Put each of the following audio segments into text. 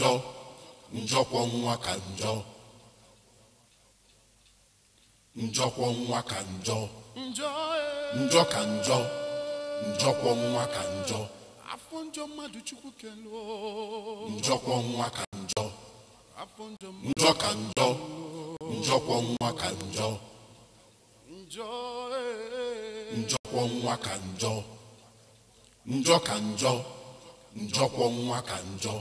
njọ njọkwọ nwa ka njọ njọkwọ nwa ka njọ njọ ka njọ njọkwọ nwa ka njọ afọ njọ mmadụ chukwu kelo njọkwọ nwa ka njọ njọ ka njọ njọkwọ nwa ka njọ njọkwọ nwa ka njọ njọ ka njọ njọkwọ nwa ka njọ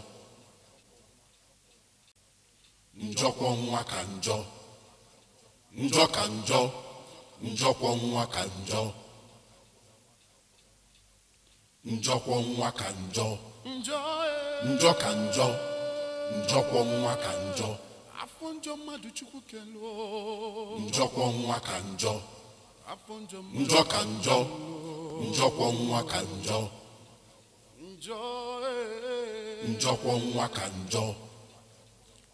njọkwọ nwa ka njọ ka njọ nwa ka njọ ka njọ njọ ka nwa ka njọ afọ njọ mmadụ chukwu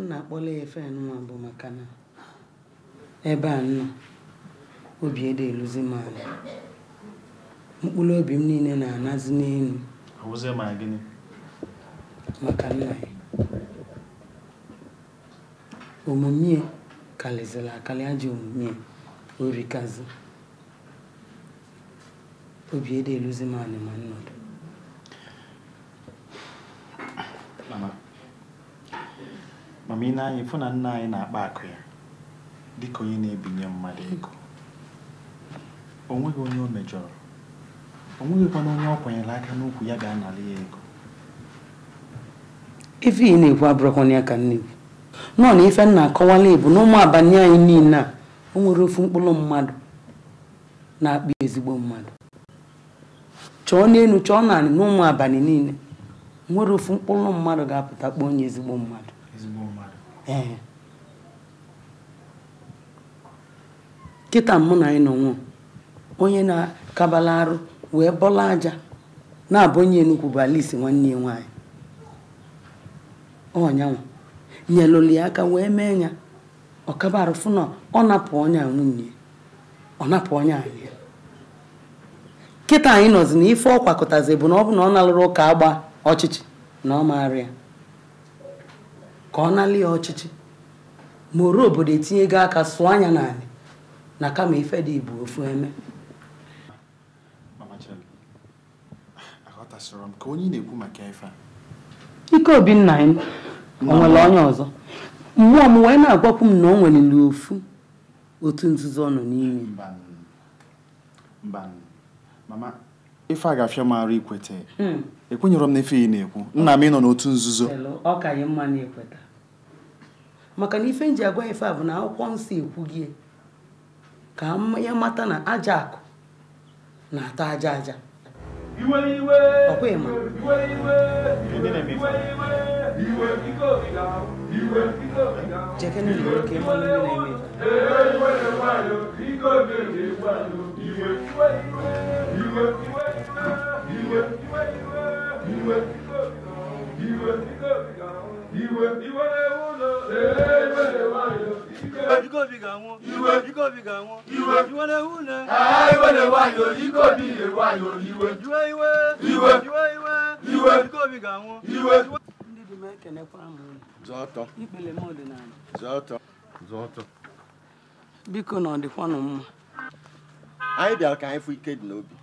nna na-akpọla ya efe nwa bụ maka na ebe a nọ obi ede eluzi m anya mkpụrụ obi m niile na-anazi n'elu maka nna ya omume karịzịrị akali aji omume orikazi obi ede eluzi m anya ma nnọdụ mana ị na-anya ịfụ na nna anyị na-akpa akụ ya dịka onye na-ebinye mmadụ ego o nweghị onye o mejọrọ o nweghịkwana onye ọ kwanyere aka n'ukwu ya ga-anara ya ego ife ị na-ekwu abụrụkwana ya ka nne gwu nọọ na ife nna akọwala ịbụ na ụmụ abalị anyị niile a o nwere ofu mkpụrụ mmadụ na-akpa ezigbo mmadụ chọọ n'elu chọọ naanị n'ụmụ abalị niile nwere ofu mkpụrụ mmadụ ga-apụta kpọọ onye ezigbo mmadụ kịta mụ na anyị nọ onye na-akabala arụ wee bọla aja na-abụ onye enugwu bụ alisi nwanne ya nwaanyị ọnyanwa nyelụli aka wee mee ya ọkabarụfụ na ọ napụ ọnya nwunye ọ napụ ọnya anyị kịta anyị nọzi na ife ọ kwakọtazi bụ na ọ bụ na ọ nalụrụ ụka agba ọchịchị na ọ maara ya ka ọ nalị ya ọchịchị ma oru obodo etinye etinyego aka sụọ anya n'ala na kama ife dị Igbo ofu eme ike obi nna m onye ọzọ mmụọ m wee na-agwakwu m na o nwereli ofu otu nzuzo ọ nọ n'ime ife a ga-afịa m arụ ikweta hmm. ekwenyere m na ife ị na-ekwu nna m ị nọ n'otu nzuzo ọ ka anyị mma na-ekweta maka na ife nji agwa ife a bụ na akwụkwọ nsọ gị ka ya mata na aja akụ na-ata aja aja ọkwa iwe iwe na nwoke iwe iwe na iwe iwe iwe iwe iwe iwe iwe ewulo ebe wayo ike ojúkòbí ga wọn iwe ojúkòbí ga wọn iwe iwe ewulo ebe wayo ikòbí wayo iwe iwe iwe iwe iwe iwe iwe ojúkòbí ga wọn iwe. ndị dị m ekenekwa m zọtọ ikpele m ọdịnala zoto, zoto. biko na ọ dịkwanụ mma anyị bịara ka anyị fụ ike dị n'obi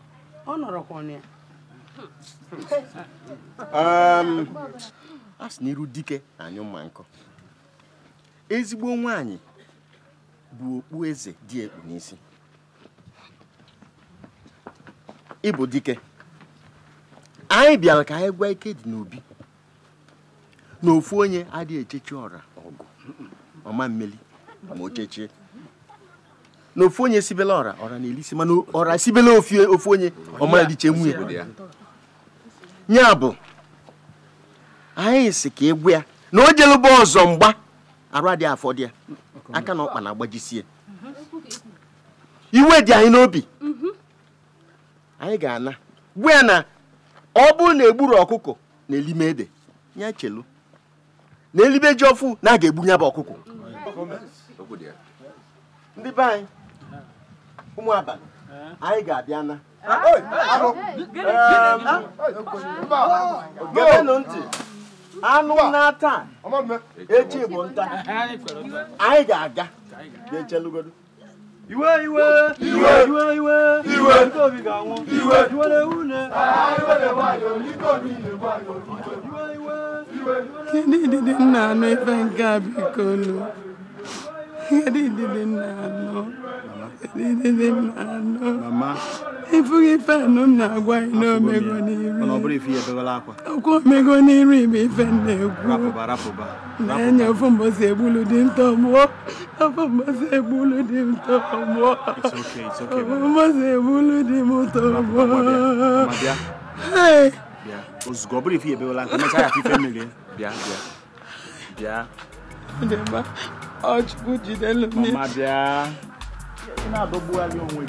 ọ nọrọkwa ya a sị na iru dike anyụ mma nkụ ezigbo nwanyị bụ okpu eze dị ekpu n'isi ịbụ dike anyị bịara ka anyị gwa ike dị n'obi na ofu onye adịghị echechi ọra ọgụ ọma mmeli ma o na ofu onye sibela ọra ọra na-elisi mana ọra sibela ofu onye ọma dịche nwunye ya bụ anyị si ka egwu ya na o jelụba ọzọ mgba arụ adịghị afọdụ ya aka na ọkpa na-agbajisie iwe dị anyị n'obi anyị ga-ana gbu ya na ọ bụrụ na egburu ọkụkọ na elime ede ya chelu na elibe ji ọfụ na aga egbu ya bụ ọkụkọ ndị be anyị ụmụ abalị anyị ga-abịa na ntị anụ na echi bụ nta anyị ga-aga ga-echelugodo iwe iwe iwe iwe iwe iwe ndị ga-anwụ iwe iwe iwe iwe iwe iwe iwe iwe nna anụ a biko unu Edidide It's okay, it's okay. ọchukwu jidelu m na-adọgbugharị onwe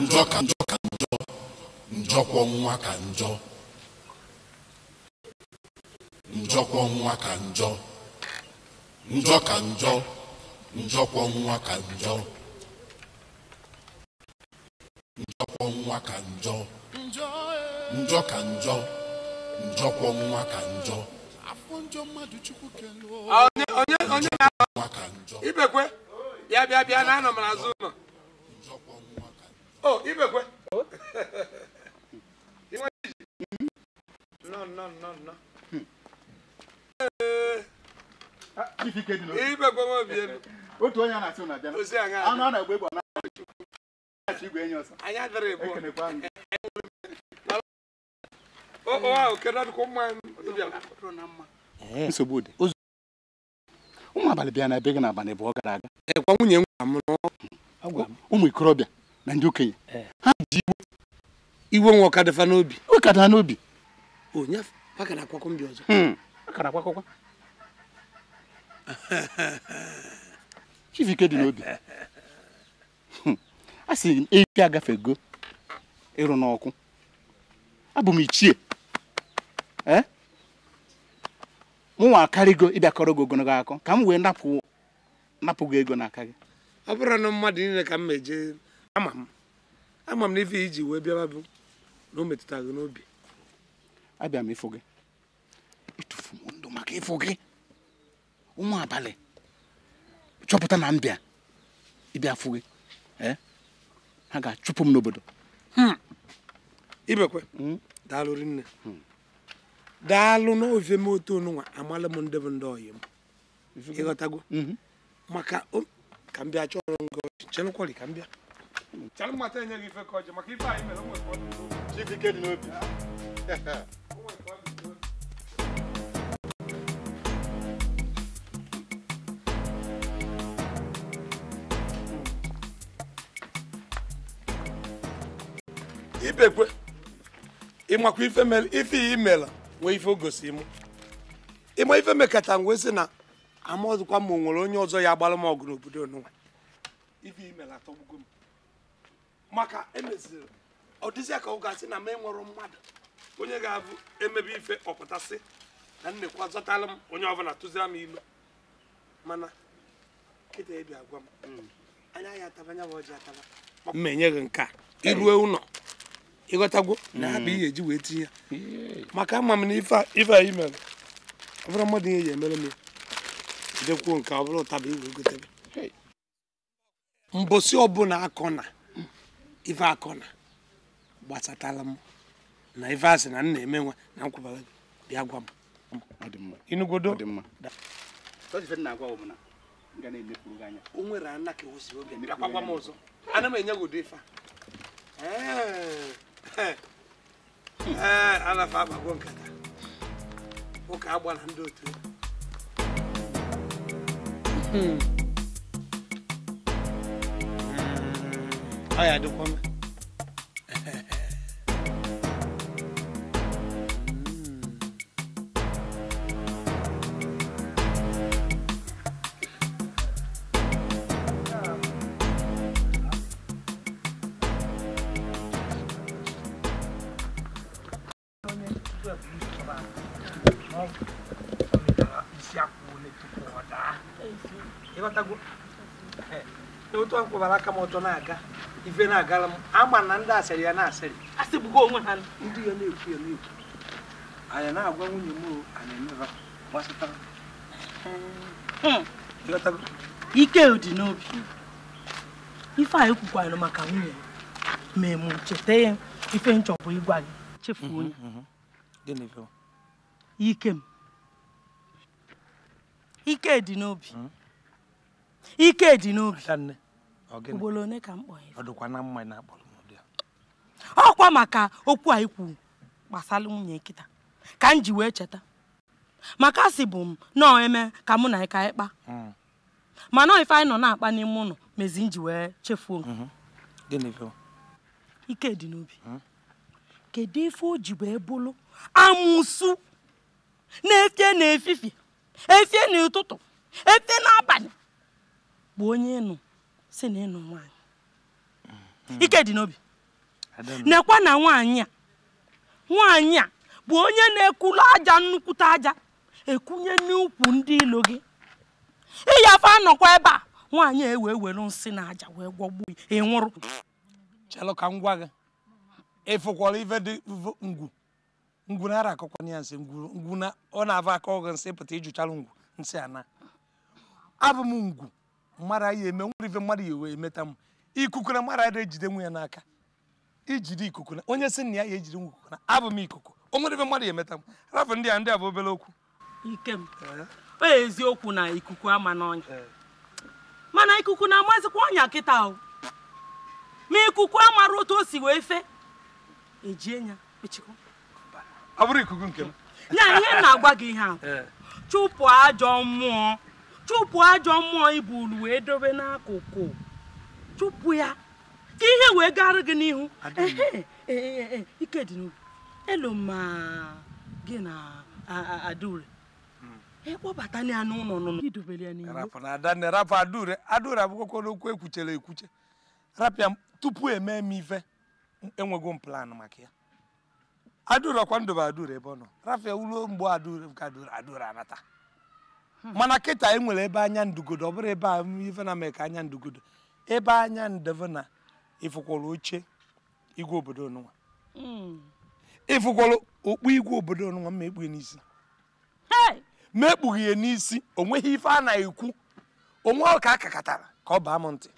njọ ka njọ ka njọ njọkwọ nwa ka njọ njọkwọ nwa ka njọ njọ ka njọ njọkwọ nwa ka njọ njọkwọ nwa ka njọ njọ ka njọ njọkwọ nwa ka njọ onye onye na-akọ bịa bịa bịa na anọ m n'azụ ụlọ o ibekwe ibekwe otu onye na-asị na anụ a na-egbe egbe egbe na igwe ọsọ ahụ kedụ mma nsogbu dị ụmụ abalị bịa na be gị n'abalị bụ ọ gara aga gwa nwunye m ụmụ ikorobịa na ndị okenye ha ji iwe iwe nwa ọkadịfa n'obi ọkada n'obi akara mbi ọzọ hmm. akara dị n'obi hmm. a sị m agafe agafego ịrụ n'ọkụ abụ m ichie m nwa akarịgo ịbịakọrọ gị ogologo akọ ka m wee napụ gị ego n'aka gị ọ bụrụ na mmadụ niile ka m meje ama m ama m na ife iji wee bịaba bụ na o metụta gị n'obi abịa m ịfụ gị ịtụfu m ndụ maka ịfụ gị ụmụ abalị chọpụta na mbịa ịbịa fụ gị eh? ha ga-achụpụ m n'obodo hmm. ibekwe hmm. daalụ rinne hmm. daalụ n'ofe m otu onụnwa amala m ndị bụ ndị ọyị m ịghọtago mhm. maka ka m bịa chọọ ọrụ ngo chelụkwari ka m bịa ibekwe ịmakwa ife imela nwee ife o gosi m ịma ife mekata m wee sị na amọzụkwa ma o nwere onye ọzọ ya agbara m ọgụ n'obodo n'ụwa ife imere atọgbugo m maka emeziri ọ dịzịa ka ọ ga gasị na m enwere mmadụ onye ga-abụ emebe ife ọpụtasị na nnekwa zọtara m onye ọbụla tụzira m ilu mana kịta ebi agwa m hmm. anya ya ataba anya bụ ọjị ataba ma enye gị nke a iruo ụlọ ịghọtagwo na ha bụ mm. ihe eji wee tinye ya maka ama m na ife anyị mere ọ bụrụ mmadụ ihe ji emere m dekwuo nke ọ bụrụ ụtaba igwe gotebe mbosi ọbụla akọ na ife akọ na gbasatala m na ife asị na m na-eme nwa na nkwụbara bịa gwa m inugodo o oge ana m enye godo ife a alafa eh, agbago nkata ụka agba na ndị otu ọ hmm. hmm. ya dịkwa mma akpọbara aka m ọtọ na-aga ife na-agara m ama na ndị asịrị ya na-asịrị asịgbugo onwe ha ndị ya na-ekwu ya na-ekwu anyị na-agwa nwunye m anyị emeba hmm. gbasatara ike dị n'obi ife anyị kwukwara maka nwunye ma emu cheta ya ife nchọpụ ịgwa gị chefuo ya mhm, mhm, mhm. ike m ike dị n'obi hmm? ike dị n'obi ugboro one ka m kpọọ ya ọkwa maka okwu a ikwu gbasara nwunye nkịta ka m ji wee cheta maka asị bụ m nọọ eme ka mụ na ịka ịkpa hmm. mana ife anyị nọ na-akpa n'ime ụlọ mezi m ji wee chefuo mm-hmm. ike dị n'obi hmm. kedu ife o ji wee na-efie na efifie efie n'ụtụtụ efie n'abalị bụ onye nụ si na ịnụ nwaanyị ike dị n'obi nekwa na nwaanyị a nwaanyị a bụ onye na-ekulu aja nnukwute aja ekunye n'ukwu ndị ilo gị ịyafe anọkwa ebe a nwaanyị a ewee were nsị na aja wee gwọgbuo ị nwụrụ chelụ ka m gwa gị ịfụkwara ife dị ngwu ngwu na ara akọkwa ya nsị ngwu na ọ na-ava akọ gị nsị pụta ijuchara ngwu nsị ana abụ m ngwu mara ya eme nwere ife mmadụ ya wee emeta m ikuku na mara ada ejide nwe ya n'aka ijide ikuku na onye si na ya ya ejide nwe ikuku na abụ m ikuku o nwere ife mmadụ ya emeta m rapụ ndị a ndị a bụ obere okwu Ikem: m eziokwu na ikuku ama n'ọnya mana ikuku na-amazikwa ọnya kịta o ma ikuku amara otu o si wee fe ejie ya ọ bụrụ ikuku nke m ya ihe na-agwa gị ihe eh. ahụ chụpụ ajọ mmụọ chụpụ ajọ mmụọ ibulu wee dobe n'akụkụ chụpụ ya ka ihe wee gara gị n'ihu e, e, e, ikedịnubu elu ma gị na adaure ịkpọbata hmm. ya n'ụlọ nụnụ idobere ya n'ihu rapụ na adanne rapụ adaure adaure abụkwakwa n'okwu ekwuchara ekwuche rapịa tupu emee m ife enwego m plan maka ya adaure ọkwa ndobe adaure ebe ọ nọ rapịa uruo mgbe adaure ka adaure adaure anata Hmm. mana kịta e nwere ebe anya ndugodo ọ bụrụ ebe a ife na mee ka anya ndugodo ebe anya ndeve na ifukwara oche igwe obodo onụnwa hmm. ifukwara okpu igwe obodo onụnwa ma ekpughe n'isi ma ekpughe ya n'isi o nweghị ife a na-ekwu onwe ka a kakatara ka ọ baa m ntị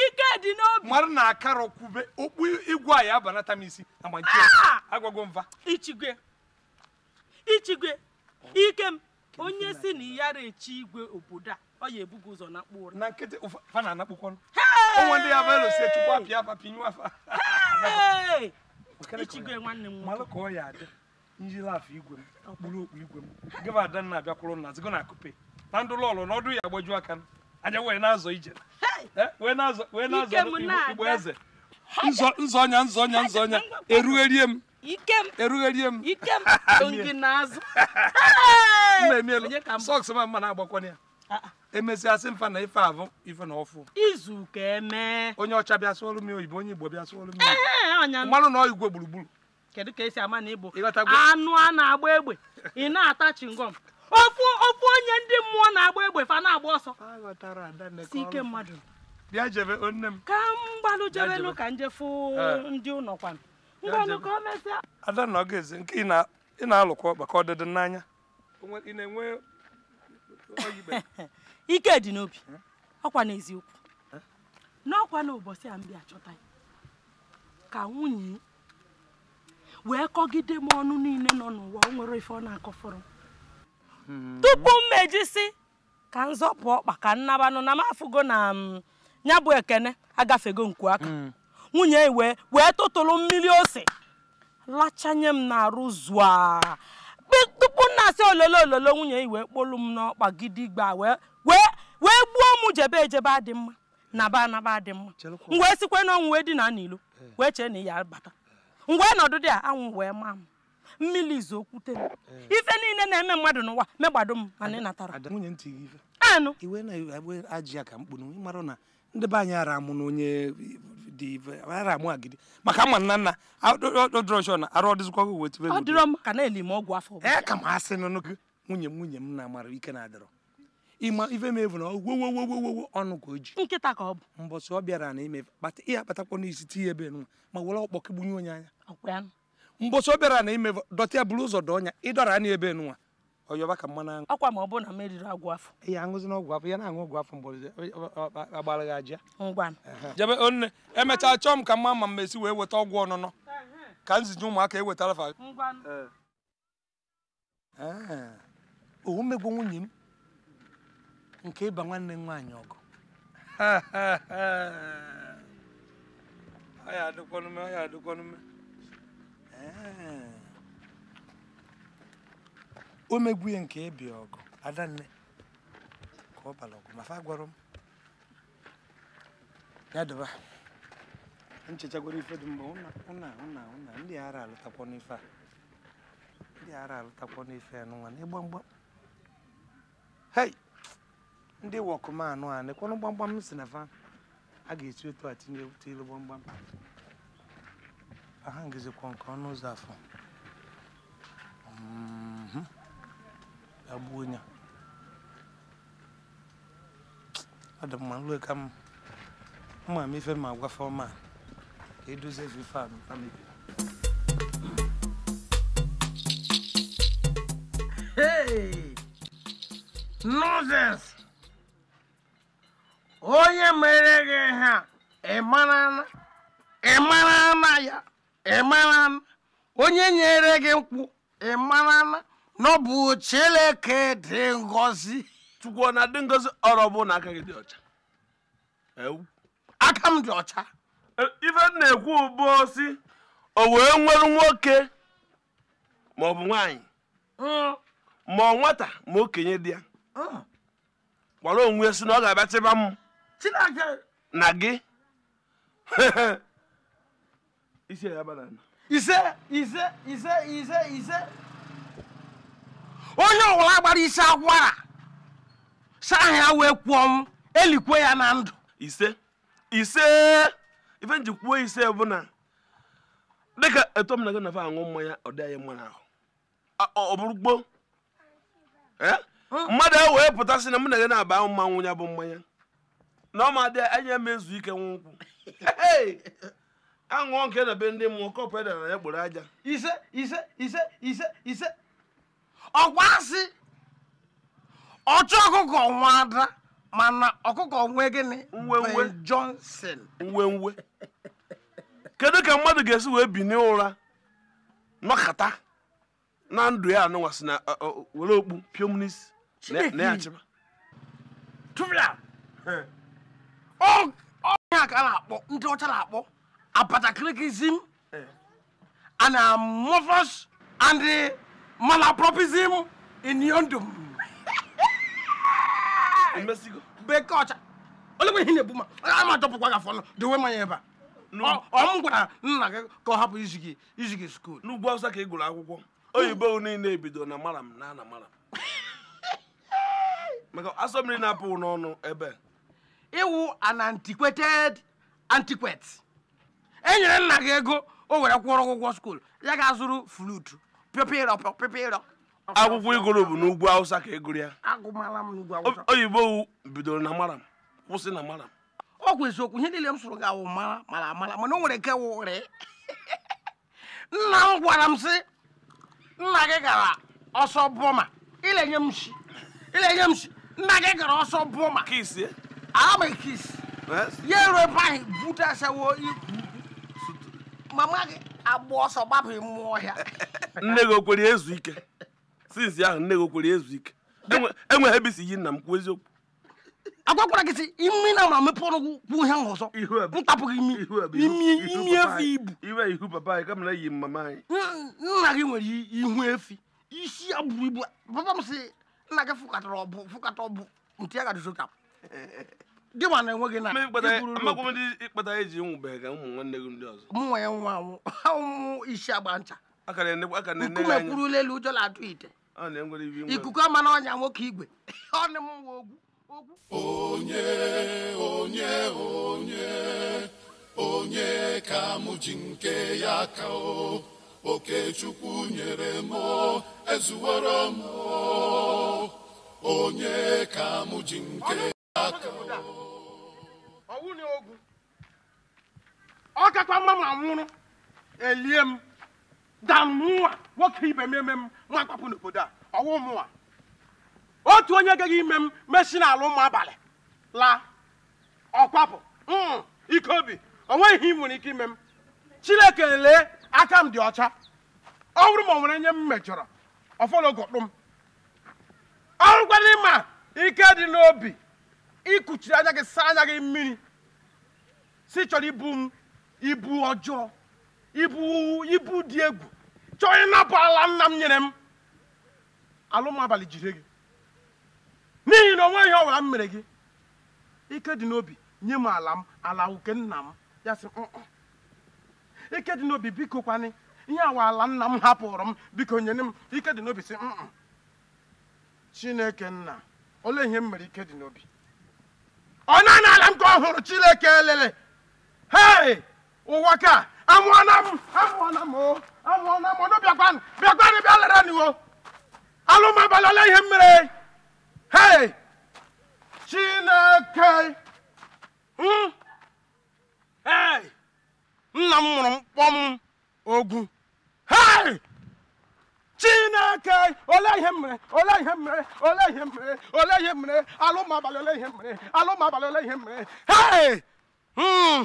ike dị n'obi Mmadụ na akara kwube okpu igwe a ya banata m isi agbaji ah! agwago mva ichigwe ichigwe ike m onye si na ya echi igwe obodo a ọ ya ebugo ụzọ na mkpụ ụra na nkịtị fa na anakpụkwanụ ọnwa ndị ya bụelo si chukwu apịa apa pinyụ afa ichigwe nwanne m malụ ka ọ ya adị njiri afọ igwe m okpuru okpu igwe m gịba ada nna abịakwụrụ na zigo na kupe na ndụ lọlụ na ọdụ ya agbajuo aka anya wee na-azọ ije eh, wee na-azọ igbo eze nzọ ọnya nzọ ọnya nzọ ọnya eruerie m ikem erugherie ikem gị n'azụ sọks ma mma na-agbakwana ya ah, ah. emesiasị mfa na ife avụ ife na ọfụ izu ka eme onye ọcha bịa sụọrụ m oyibo onye igbo bịa sụọrụ m mmanụ na igwe gburugburu kedu ka esi ama na igbo anụ a na-agba egbe ị na-ata chingom ofu ofu onye ndị mmụọ na-agba egbe fa na-agba ọsọ si ike mmadụ bịa jebe onne m ka m gbalụ jebelu ka njefu ndị ụlọ kwanụ ada na ọ ga nke ị na-alụkwa maka ọdịdị n'anya ike dị n'obi ọkwa n'eziokwu n'ọkwa n'ụbọchị a mbịa achọta, ka nwunye wee kọgide m ọnụ niile nọ n'ụwa o nwere ife ọ na akọ fọrọ. Hmm. tupu mmejisi ka nzọpụ ọkpa ka nnabanụ na m afụgo na ya bụ ekene agafego nku aka hmm. nwunye iwe wee tụtụrụ mmiri ose lachanye m na arụ zụa tupu nna asị ololo ololo nwunye iwe kpolu m n'ọkpa gidigba wee gbuo m jebe ejebe adị mma na ba anaba adị mma ngwa esikwe sikwe n'ọnwụ wee dina n'ilo eh. wee chee na ya bata ngwa nọdụ dị a anwụ wee maa m mmiri izu okwute m eh. ife niile na-eme mmadụ n'ụwa megbado m mana ị natara anụ ndị be anyị ara amụ na onye dị ara amụ agidi maka ama nna nna odroshọ na arụ ọdịzikwa gị wetu ọ dịrọ m ka na-eli m ọgwụ afọ ee ka m asị nụ gị nwunye m nwunye m na amara ike na-adịrọ ịma ife m evu na ogwogwogwogwo ọnụ ka o ji nkịta ka ọ bụ mbọsị ọ bịara na ime ihe akpatakwa n'isi tinye ebe nwa ma were ọkpọ gbunye onye anya mbọsị ọ bịara na ime dọta ya bụrụ ụzọ dọọ ọnya ịdọra anya ebe nwa ọyọba ka mmanụ aṅụ ọkwa ma ọ bụrụ na m eriri agwụ afọ ihe aṅụzi na ọgwụ afọ ya na-aṅụ ọgwụ afọ mgbọrọzi agbara gị aja ngwanụ jebe onne emechaa chọọ m ka mma ma m esi wee weta ọgwụ ọnụnọ ka nzinye ụmụaka ewetara fa owu mmegbu nwunye m nke ịba nwanne m nwaanyị ọgụ ya adịkwanume ya adịkwanume o megbuye nke ebi ọgụ adanne ka ọ bara ọgụ mafa gwara m ya daba nchechagwara ife dị mba ụna ụna ụna ndị ara alụtakwa n'ife a ndị ara alụtakwa n'ife ya n'ụwa n'ịgba mgbam hei ndị anụ a nekwanụ gbamgbam m si na fa a ga-esi otu a tinye otu ilu gbamgbam aha ngizikwa nke ọnụ ụzọ afọ mm-hmm. agbuo onye ọ dị mma nrue ka m mma m ife ma agwafe ọma ka edozie ife a mebiri nọzes onye mere gị ha ịmara na ya ịmara na onye nyere gị mkpu ịmara na n'ọbụ Chineke dị ngosi. chukwu ọ na-adị ngosi ọrụ bụ na aka gị dị ọcha aka m dị ọcha ife na-ekwu bụ si o wee nwere nwoke ma ọ bụ nwaanyị hmm. ma ọ nwata ma okenye di ya gbara onwe si na ọ ga-abịa chịba m na gị ise ise ise ise ise onye ọwụla gbara isi agwara saa ya wee kwuo m elikwe ya na ndụ ise ise ife nji kwuo ise bụ na dịka etu m na gị nafe aṅụ mmanya ọ dịghị anyị mma n'ahụ ọ gboo mmadụ ahụ wee pụta pụtasị na mụ na gị na-aba mmanwụ ya bụ mmanya na ọ ma dị anyị eme ezu ike nwa nkwụ aṅụọ nke na be ndị mmụọ kọpụ edara ya gboro aja ise ise ise ise ise ọkwa asị ọchụ ọkụkọ nwa ada mana ọkụkọ nwe gịnị Ben Johnson nwenwe kedu ka mmadụ ga-esi wee bi n'ụra nọkata na ndụ ya anụnwasị na were okpu pịọm na ya chịba ọnya ka a na-akpọ ndị ọcha na-akpọ apatakrikizim eh. and amorphous and malapropism in m. bekee ọcha olegwe ihe na-ebu ma a ma dọpụkwa gị afọ ọnụ dowe manya ebe a ọ m gwara nna gị ka ọ hapụ izi gị izi gị skuul n'ugwu awụsa ka ị gụrụ akwụkwọ oyibo niile ebido na mara m na ana mara maka asọ na-apụ n'ọnụ ebe ịwụ an antiquated antiquette enyere nyere nna gị ego o were kwụrụ ụgwọ skuul ya ga-azụrụ flutu pịọpịrọ pịọpịrọ akwụkwọ igoro bụ n'ugwu awụsa ka egoro ya oyibo bidoro na maram kwụsị na maram ọ kwa eziokwu ihe niile m sụrụ gị awụ mara mara amara mana o nwere nke wụrị nna m gwara m sị nna gị gara ọsọ bọma ilenye m shi ilenye m shi nna gị gara ọsọ bụma kisi ara m kisi ya eruo ebe ahụ butesawo ikwu mama gị agba ọsọ gbapụ mmụọ ọhịa nne gị okwere ezu ike sinsi ahụ nne gị okwere ezu ike enweghị ebe isi yi nna m kwuo eziokwu agwakwara gị si imi na ma mepe ọnụ kwuo ihe ahụ ọzọ ntapụ imi imi imi efi ibu iwe ihu papa anyị anyị. mama nna gị nwere ihu efi isi ya buru ibu papa m si nna gị fụkatara ọbụ fụkata ọbụ ntị ya gadụzokapụ gị ma na enwe gị na amakwụ ndị ịkpata eji nwụbeghị ka ụmụ nwanne gị ndị ọzọ mụnwa ya nwa anwụ ha ụmụ isi agba ncha nkume kwurula elu ụjọ na-atụ ite ikuku ama na ọnya nwoke igwe ọ na mwa ogwu onye onye onye onye ka m ji nke ya ka o okechukwu nyere m ezuwere m onye ka m ji nke ya ka o ọwụ na ogwu ọ kakwa mma ma nwụrụ elie m da nwoke ibe m eme m nwa kwapụ n'obodo a ọwụ otu onye gaghị ime m mesi n'ala ụmụ abalị laa ọkwapụ mm, ike obi o nweghị nwere ike ime m chineke lee aka m dị ọcha ọ bụrụ ma ọ nwere nye m mejọrọ ọfọlọgọkpụ m ọrụkwala ịma ike dị n'obi ị anya gị saa anya gị mmiri si chọrọ ibu m ibu ọjọọ ibu ibu dị egwu chọọ ịnapụ ala nna m nyere m alụm abalị jire gị n'ihi na onwe ihe ọbụla m mere gị ike dị n'obi nye m ala m ala nke nna m ya sị mm, mm. ike dị n'obi biko kwanị ihe awa ala nna m hapụrụ m biko nyere m ike dị n'obi sị mm, chineke nna ole ihe m mere ike dị n'obi ọ naanị ala m ka ọ hụrụ Chineke elele hei ụwa ka amụọna m amụọna m amụọna m ọnụ bịakwanụ bịakwanụ bịa lere n'iwo alụmabalị ole ihe mere hei Chineke hmm? hei nna m mụrụ mkpọm ogwu hei chineke ole ihe mere ole ihe mere ole ihe mere ole ihe mere alụmabalị ole ihe mere alụmabalị ole ihe mere hey hmm.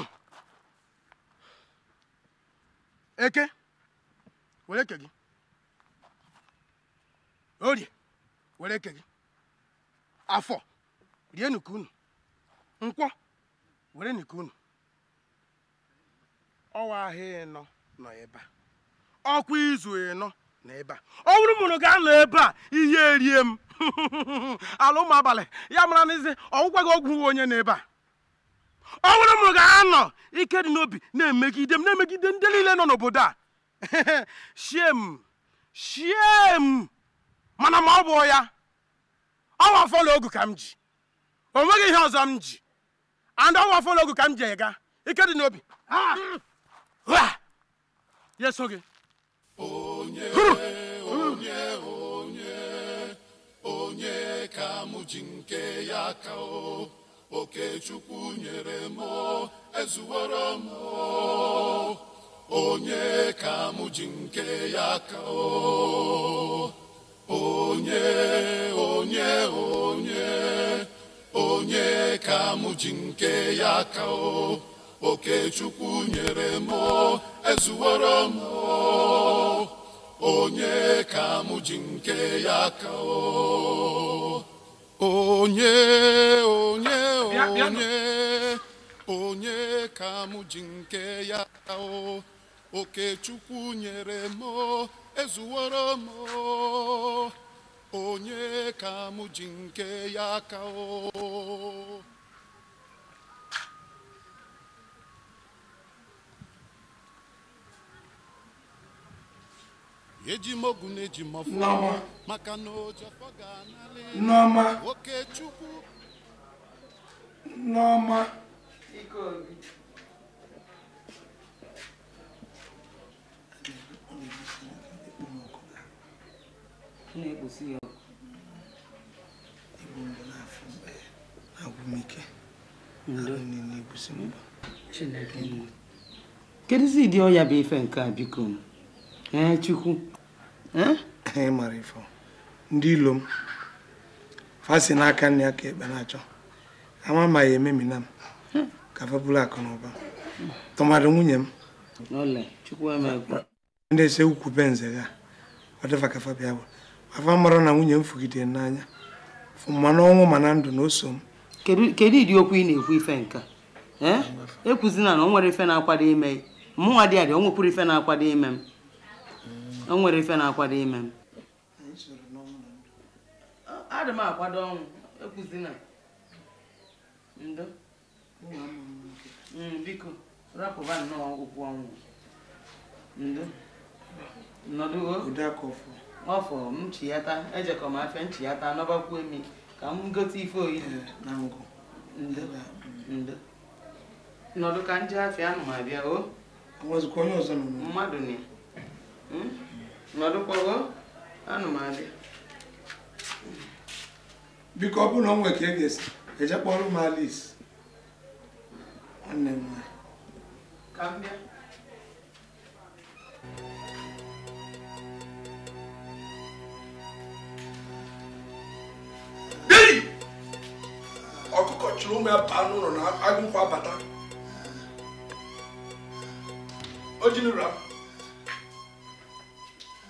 eke were eke gị orie were eke gị afọ rie nnukwu unu nkwọ were nnukwu unu ọwa ahịa ịnọ nọ ebe a ọkwa izu ịnọ n'ebe a ọ bụrụ mụrụ ga-anọ ebe a ihe erie m ala ụmụ abalị ya mara n'ezi ọgwụgwa gị ọgwụ onye n'ebe a ọ bụrụ mụrụ ga-anọ ike dị n'obi na-emegide m na-emegide ndị niile nọ n'obodo a shiem shiem mana ma ọ bụ ya ọwa fọlọ ogu ka m ji o nweghị ihe ọzọ m ji and ọwa fọlọ ogu ka m ji ega ike dị n'obi ya so gị onye onye onye onye ka m ji nke ya ka o okechukwu nyere m ezuworo m onye ka m ji nke ya ka o onye onye onye onye ka m ji nke ya ka okechukwu nyere m ezuworo m onye ka m nke ya ka onye onye onye onye ka m ji nke ya ka okechukwu nyere m ezuworo m onye ka mụ ji nke ya ka ejimogu na-eji maka na oke chukwu kedụzi ụdị ọya bụ ife nke a biko chukwu anyị mara ifo ndị ilo m fasi n'aka nne ya ka ekpe na-achọ ama ma ya ememina m ka fepụlụ akụ na ụba tụmadụ nwunye m e ndị ese ukwu be ya ọ dịfa ka fabia bụ afa mara na nwunye m fugidere n'anya ma n'ọnwụ ma na ndụ na o m kedu ịdị okwu ị na-ekwu ife ekwuzina e na o nwere ife na-akwado ime dị adị o nwekwuru ife na-akwado ime m o nwere ife na-akwado ime m adị m akwado ọnwụ ekwuzina ndo hmm, biko rapụba nnọọ okwu ọnwụ ndo nọdụgo ọfọ m chiyata ejekọ m afịa nchiyata nọbakwuo emi ka m gote ife oyizi eh, ndo mm. ndo nọdụ ka ndị afịa anụ ma bịa o mmadụ na nọdụkwago anụmadị biko ọ bụrụ na ọ nwere ka e ga-esi eje kpọrọ m Alice nwanne m nwanyị ka m bịa ọkụkọ chụrụ ụmụ ya baa n'ụlọ na agụkwa bata o jinura m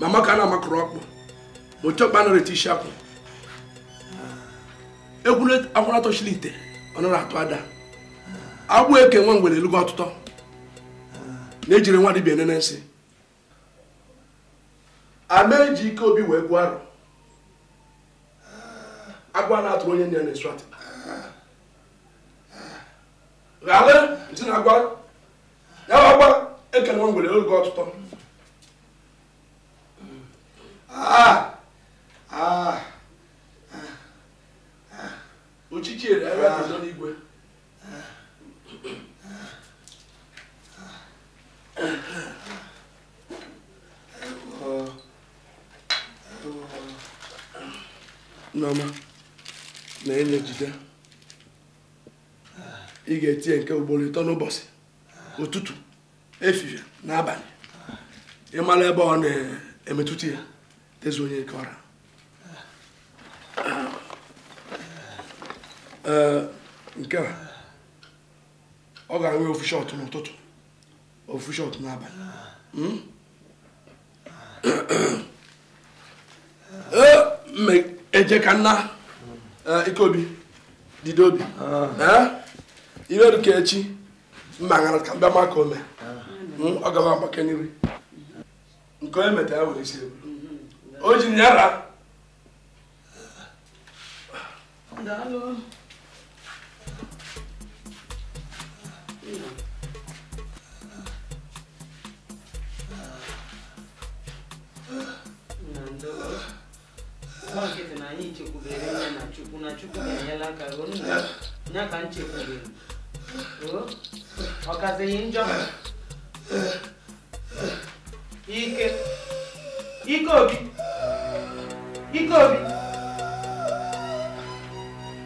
mama ka a na-amakọrọ ọkpụ mochekpa nọrọ isi akwụ akwụrụ atọchiri ite ọ atụ ada agwa eke nwa mgbere elugo ọtụtọ na-ejiri nwa dibia enene nsị ama eji ike obi wee gbuo arụ agwa na-atụrụ onye nne na-esu atị ghale na agwa ya e nwa ọtụtọ Ah! Ah! Ochichi ere n'igwe. Nneọma na enye jide ị ga-etinye nke ugboro ịtọ n'ụbọchị ụtụtụ efifie n'abalị ịmara ebe ọ na-emetụta ya onye one you got. nke a ọ ga-enwe ofu shọt n'ụtụtụ ofu shọt n'abalị hmm? e, eje ka nna e, ikeobi dide obi ah. eh? iwe dịka echi mma ṅara ka mbịa maka ome ah. hmm? ọ gaba agbake nri nke onye metara ya were isi o jiginyara. Daalụ. Ọkịta na anyị chekwubere ya na Chukwu na Chukwu ga-enyela aka ruo ya ka nchekwubere. Ọ kazighị njọ. Ike. Ikobi, ikobi,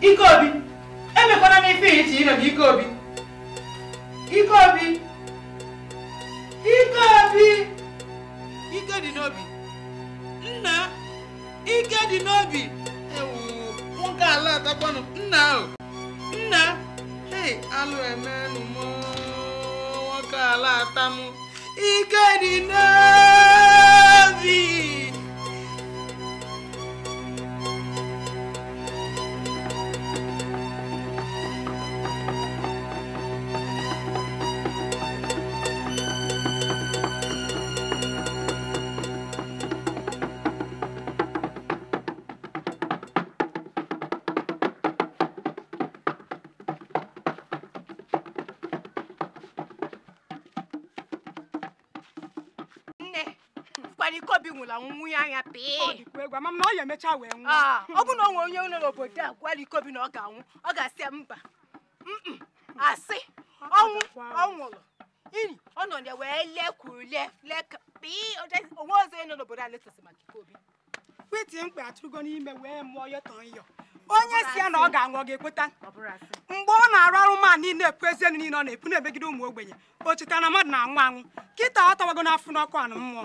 ikobi. Obi Ike mi emekwana m ife iche ikobi, ikobi, ikobi Ike Obi Ike Obi Ike dị n'obi nna ike dị n'obi ewu nwoke ala atakwanụ nna ahụ nna hei alụ emenụ m nwoke ala atamụ ike dị n'obi vie. mana ikobi nwụrụ anwụ nwunye anya pịị ọ ya wee nwụ ah, ọ bụ na ọ nwe onye nọ n'obodo a gwala ikobi na ọ ga-anwụ ọ ga-asị mba asị ọnwụ ọ nwụrụ ini ọ nọ ya wee onwe ọzọ nọ n'obodo a onye si ya na ọ ga-anwụ ọ ga mgbe ọ na-arụ arụ ma niile ekwu ezienu niile ọ na-epu na-emegide ụmụ ogbenye o cheta na na-anwụ anwụ kịta ọ tawago n'afọ n'ọkụ anụ mmụọ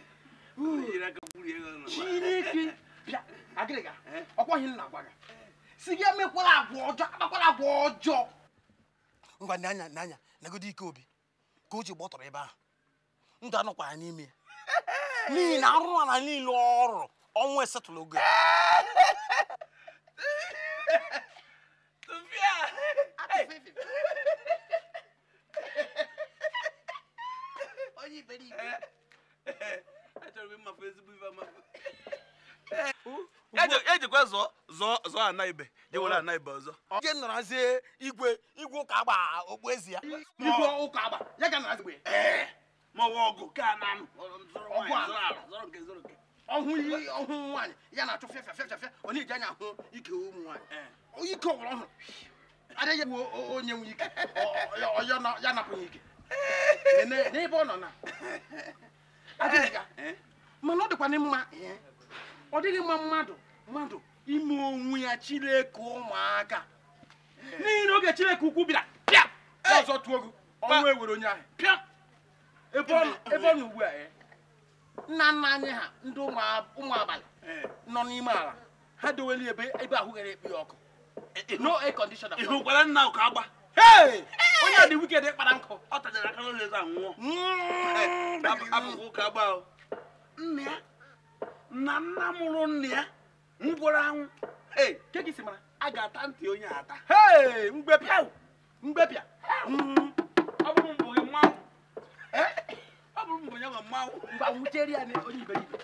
chineke bịa agịrịga ọkwọghị nna gwa gị si gị emekwala agwa ọjọọ akpakwala agwa ọjọọ ngwa n'anya n'anya nagodi ike obi ka o ji gbọtọrọ ebe ahụ ndụ anọkwa ya n'ime n'ihi na arụrụ ala niile ọrụ ọnwụ esetụlụ ogo e ana ibe ana ibe ọzọ je narazie igwe igwe ụka agba ezi ya igwe ụka agba ya ga narazie ee ma ọgụ ka na ọhụ iyi ọhụ nwaanyị ya na-achụ fịafịa fịafịa ọ na-eji anya ahụ ike ụmụ nwaanyị ike ọhụrụ adịghị onye nwe ike ya napụghị ike n'ebe ọ nọ na mana ọ ọ dịghị mma mmadụ mmadụ ime onwe ya Chineke ụmụaka eh. n'ihi na oge Chineke ukwu bịara pịa eh. ọzọ tụọ gị ọnwụ ewere onye ahụ pịa ebe ọ na ugbu a eh. nna nna anyị ha ndị ụmụ abalị nọ n'ime ala ha dowere ebe ebe ahụ ghere ekpe ọkụ no air conditioner ihu gwara nna ụka agba onye a dị wiked kpara nkụ ọ tajara aka n'ụlọ eze anwụọ abụghị ụka agba nna ya na nna mụrụ nna ya mgboro anwụ ee keki si mara a ga-ata ntị onye ata ee mgbepịa mgbepịa hmm. ọ bụrụ mbụ gị mmanwụ eh? ọ bụrụ mbụ ya nwa mmanwụ ngwa nwụchere ya onye iberibe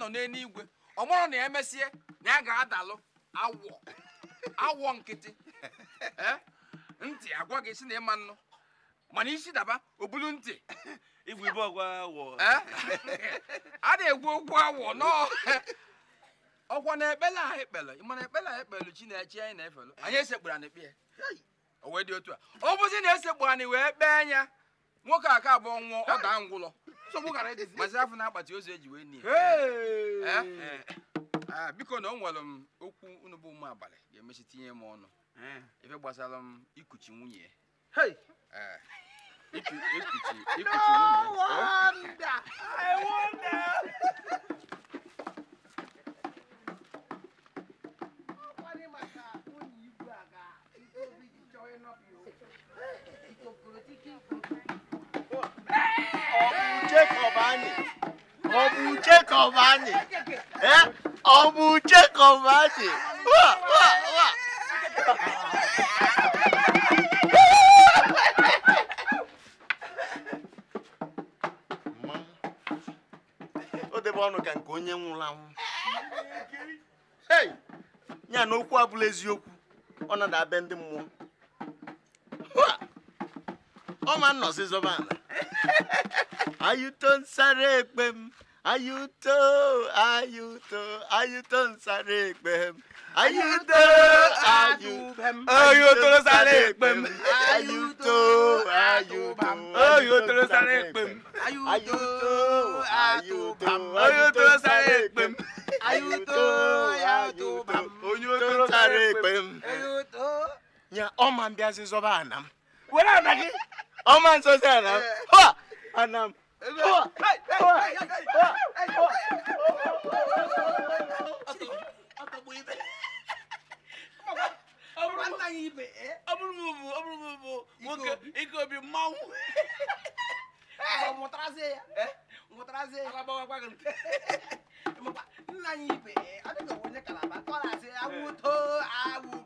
nọ n'eluigwe ọ mụrụ na emesie na ya ga-adalụ awọ awọ nkịtị eh? ntị agwa gị si na ịma nnụ mana isi daba obulu ntị eh? a na-egwu okwu awọ nọọ ọkwa na ekpele ahụ ekpele mana ekpele ahụ na Chineke anyị na-efelu anyị esekpuru anyị kpee o wee dị otu a ọ bụzi na esekpuru anyị wee kpee ya nwoke aka abụọ nwụọ ọ daa ngwụlọ mazi afọ na akpati ozu eji wee Eh? Eh. Ah, biko na ọ nwere m okwu unu bụ ụmụ abalị ga-emechi tinye m ọnụ ife eh. gbasara m ikuchi nwunye ikuchi nwunye ah, Jacob anyị eh? ọ bụ Jacob anyị wa wa wa o debe ọnụ ka nke onye nwụrụ anwụ ya na okwu abụla eziokwu ọ na abịa ndị mmụọ ọ ma nnọzi zọba ala ayụto nsara ekpe m Ayuto, ayuto, ayuto, ń sáré pẹ̀m. ayútó ayúbẹ̀m. ayútó ló sáré pẹ̀m. Ayuto, ayúbẹ̀m. Ayuto, ló sáré pẹ̀m. ayútó ayúbẹ̀m. ayútó ló sáré pẹ̀m. ayútó ayúbẹ̀m. ayútó ló sáré pẹ̀m. ayútó. nya ọma mbịa zọba anam. were anagị. ọma nsọ sị anam. ha anam nna anyị ibe adịghị onye kalaba tọrasị awụto awụ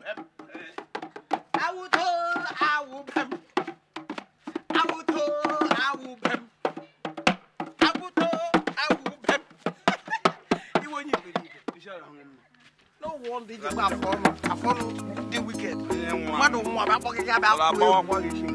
I follow the wicked mmadụ nwa bụ akpọghị ya bụ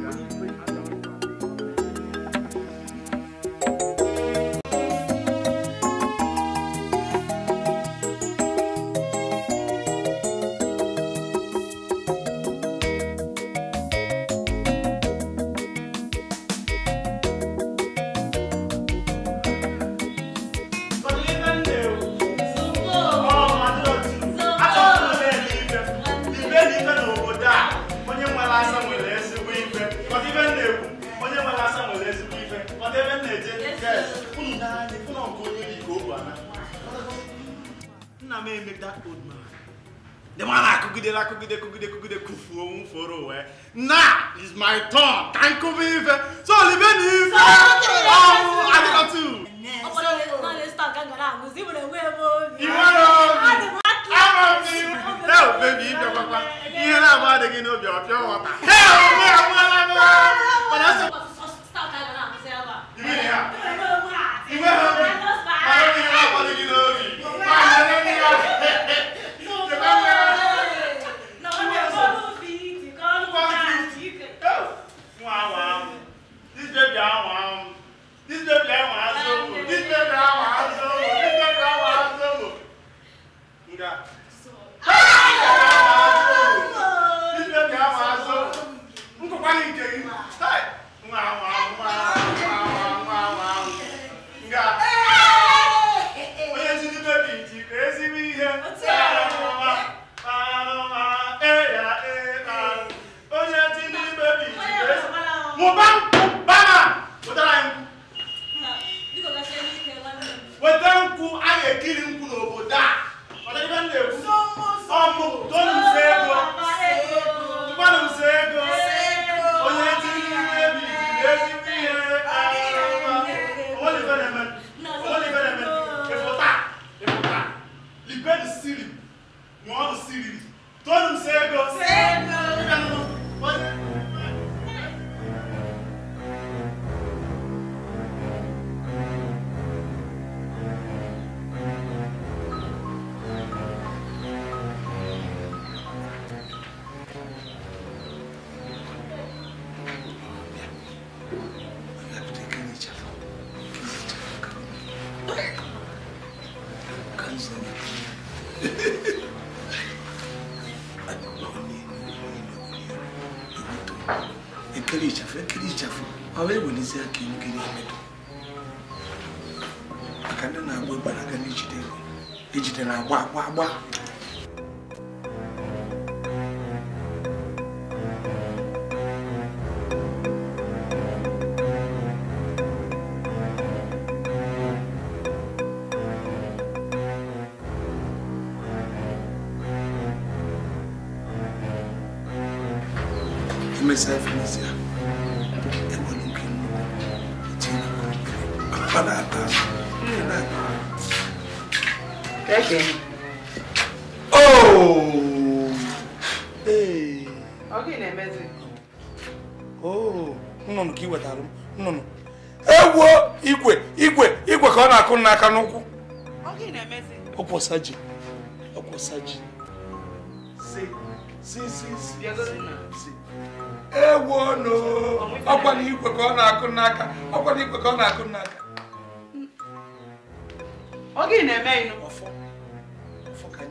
ọ wee welizie ka iwu gị na-emedo maka ndị na-agba ịgbara aga ejide ejide na-agba agba agba agba akwọsa ji akwọsa ji ewonu ọkwana igwe ka ọ na-akụ n'aka ọkwana igwe ka ọ na-akụ n'aka gị na-eme ịnụ ọfọ ọfọ ka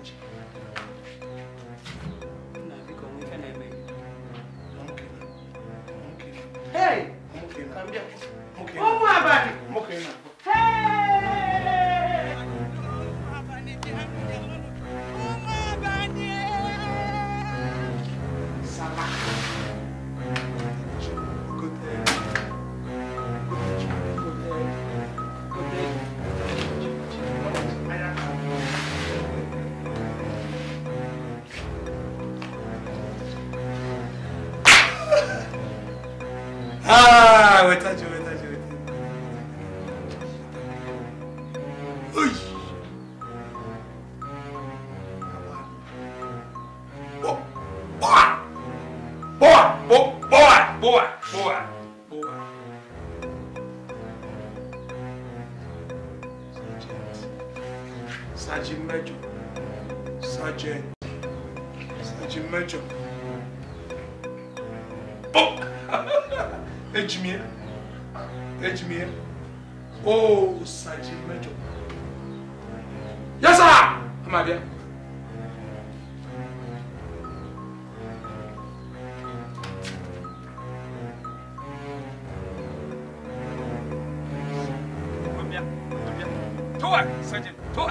Tua! Sandy, tua!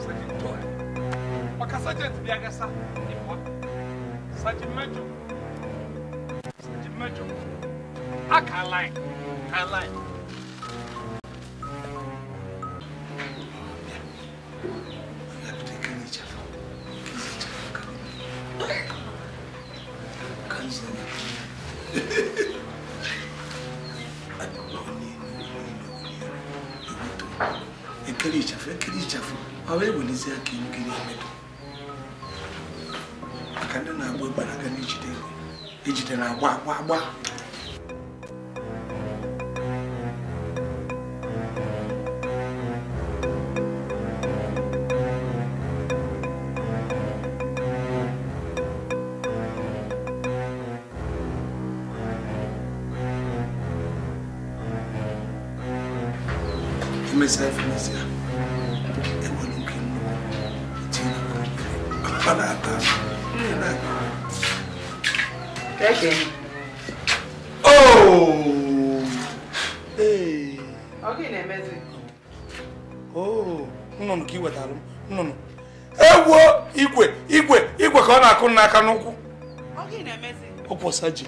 Sandy, tua! Baka sergeant biya ga sa ni kwa. Sandy Major. Sandy Major. Aka line. Aka line. wee welizie aka na emedo maka ndị na-agba ịgbanaga na ejide egbe ejide na agba agba agba aka n'ụkwụ ọkwọsa ji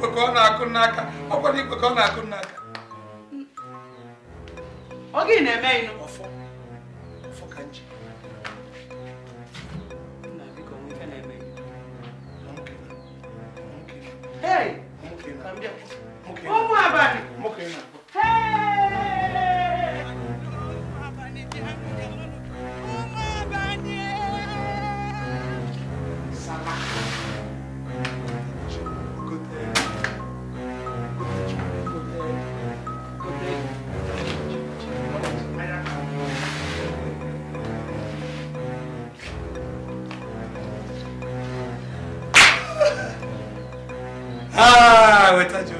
ka ọ na-akụ n'aka igwe ka ọ na-akụ n'aka oge na-eme ịnụ ọfọ ọfọ ka nji Hey! I would touch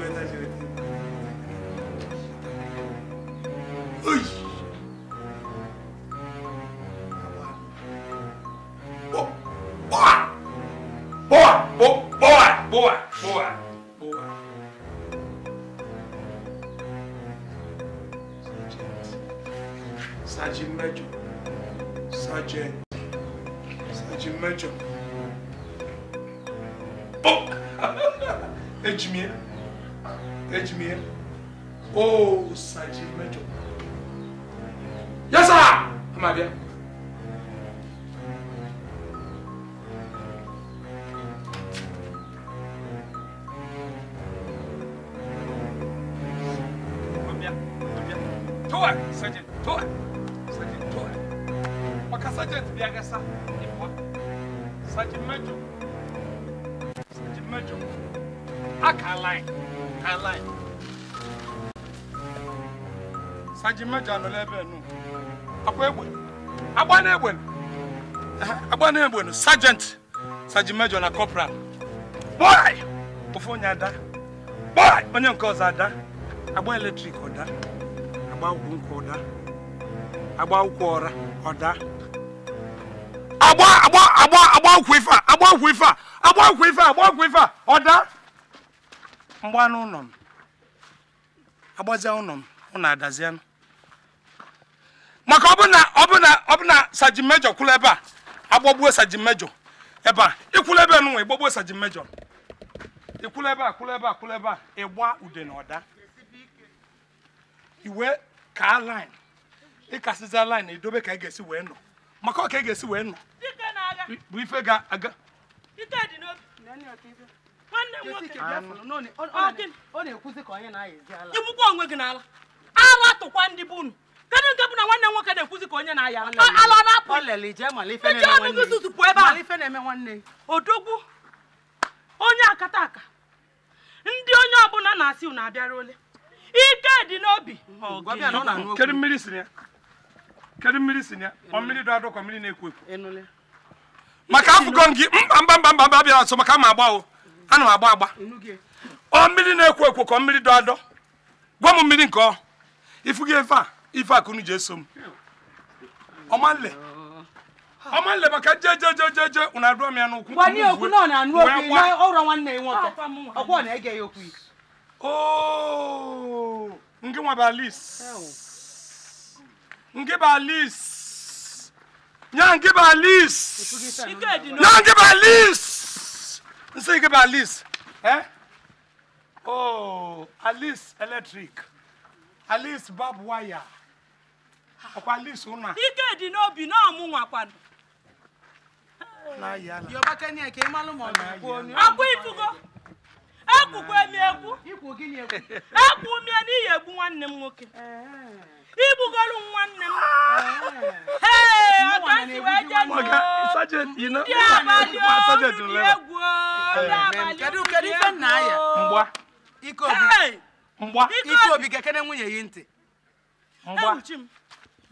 yes sir ama abịa Sergeant, do it! Sergeant, do it! Maka Sergeant Biagasa, Ipoa. Sergeant Major. Sergeant Major. Aka line. Aka line. Sergeant Major no lebe no. akwa egbe agba na egbe agba na egbe sergeant sergeant major na corporal boy ofu onye ada boy onye nke ọzọ ada agba eletrik ọda agba akwụkwọ nkwa ọda agba akwụkwọ ọra ọda agba agba agba agba akwụkwọ ife a agba akwụkwọ ife a agba akwụkwọ ife a agba akwụkwọ ife a ọda mgbanụ ụlọ m agbazia ụlọ m ụlọ adazianụ maka ọbụna ọbụna ọbụna sajin mejọ kwụrụ ebe a agbagbuo sajin mejọ ebe a ịkwụrụ ebe nụnwa ịgbagbuo sajin mejọ ịkwụrụ ebe a kwụrụ ebe a kwụrụ ebe a ịgba ude na ọda iwe ka lin ịkasịza lin idobe ka ị ga-esi wee nọ maka ọ ka ị ga-esi wee nọ bụ ife ga-aga igbukwa onwe gị n'ala ala tụkwa ndị kedu nke bụ na nwanne nwoke na-ekwuzi ka onye na-aya ala na-apụ tutu pụọ ebe a odogwu onye akata aka ndị onye ọbụla na-asị na abịara ole ike dị n'obi kedu mmiri si ya kedu mmiri si ya ọ mmiri dọ adọkọ mmiri na-ekwo ekwo maka afụgo gị mba mba mba mba bịara nso maka ama agba o ana m agba agba ọ mmiri na-ekwo ekwo ka ọ mmiri dọ adọ gwa m mmiri nke ọ ifu gị efe a ife akụnụ ji eso m ọmanle ọmanle maka je je je ụna abụọ m ya n'ụkwụ gwanye okwu na ọ na-anụ okwu ọrụ nwanne ya nwoke ọkwa na-ege ya okwu ooo nwa nwa lis ngị ba lis nya ngị ba lis nya ngị ba lis nsị ngị ba lis oh alice electric alice barbed wire ọkwa list ụna ike dị n'obi na ọmụ nwakwado ifugo ekwukwa emi egwu ekwu umie n'ihi egbu nwanne m nwoke igbugolu nwanne m wee je ndị abalị oriri egwu ndị abalị oriri egwu ike obi ga-ekene nwunye ya ntị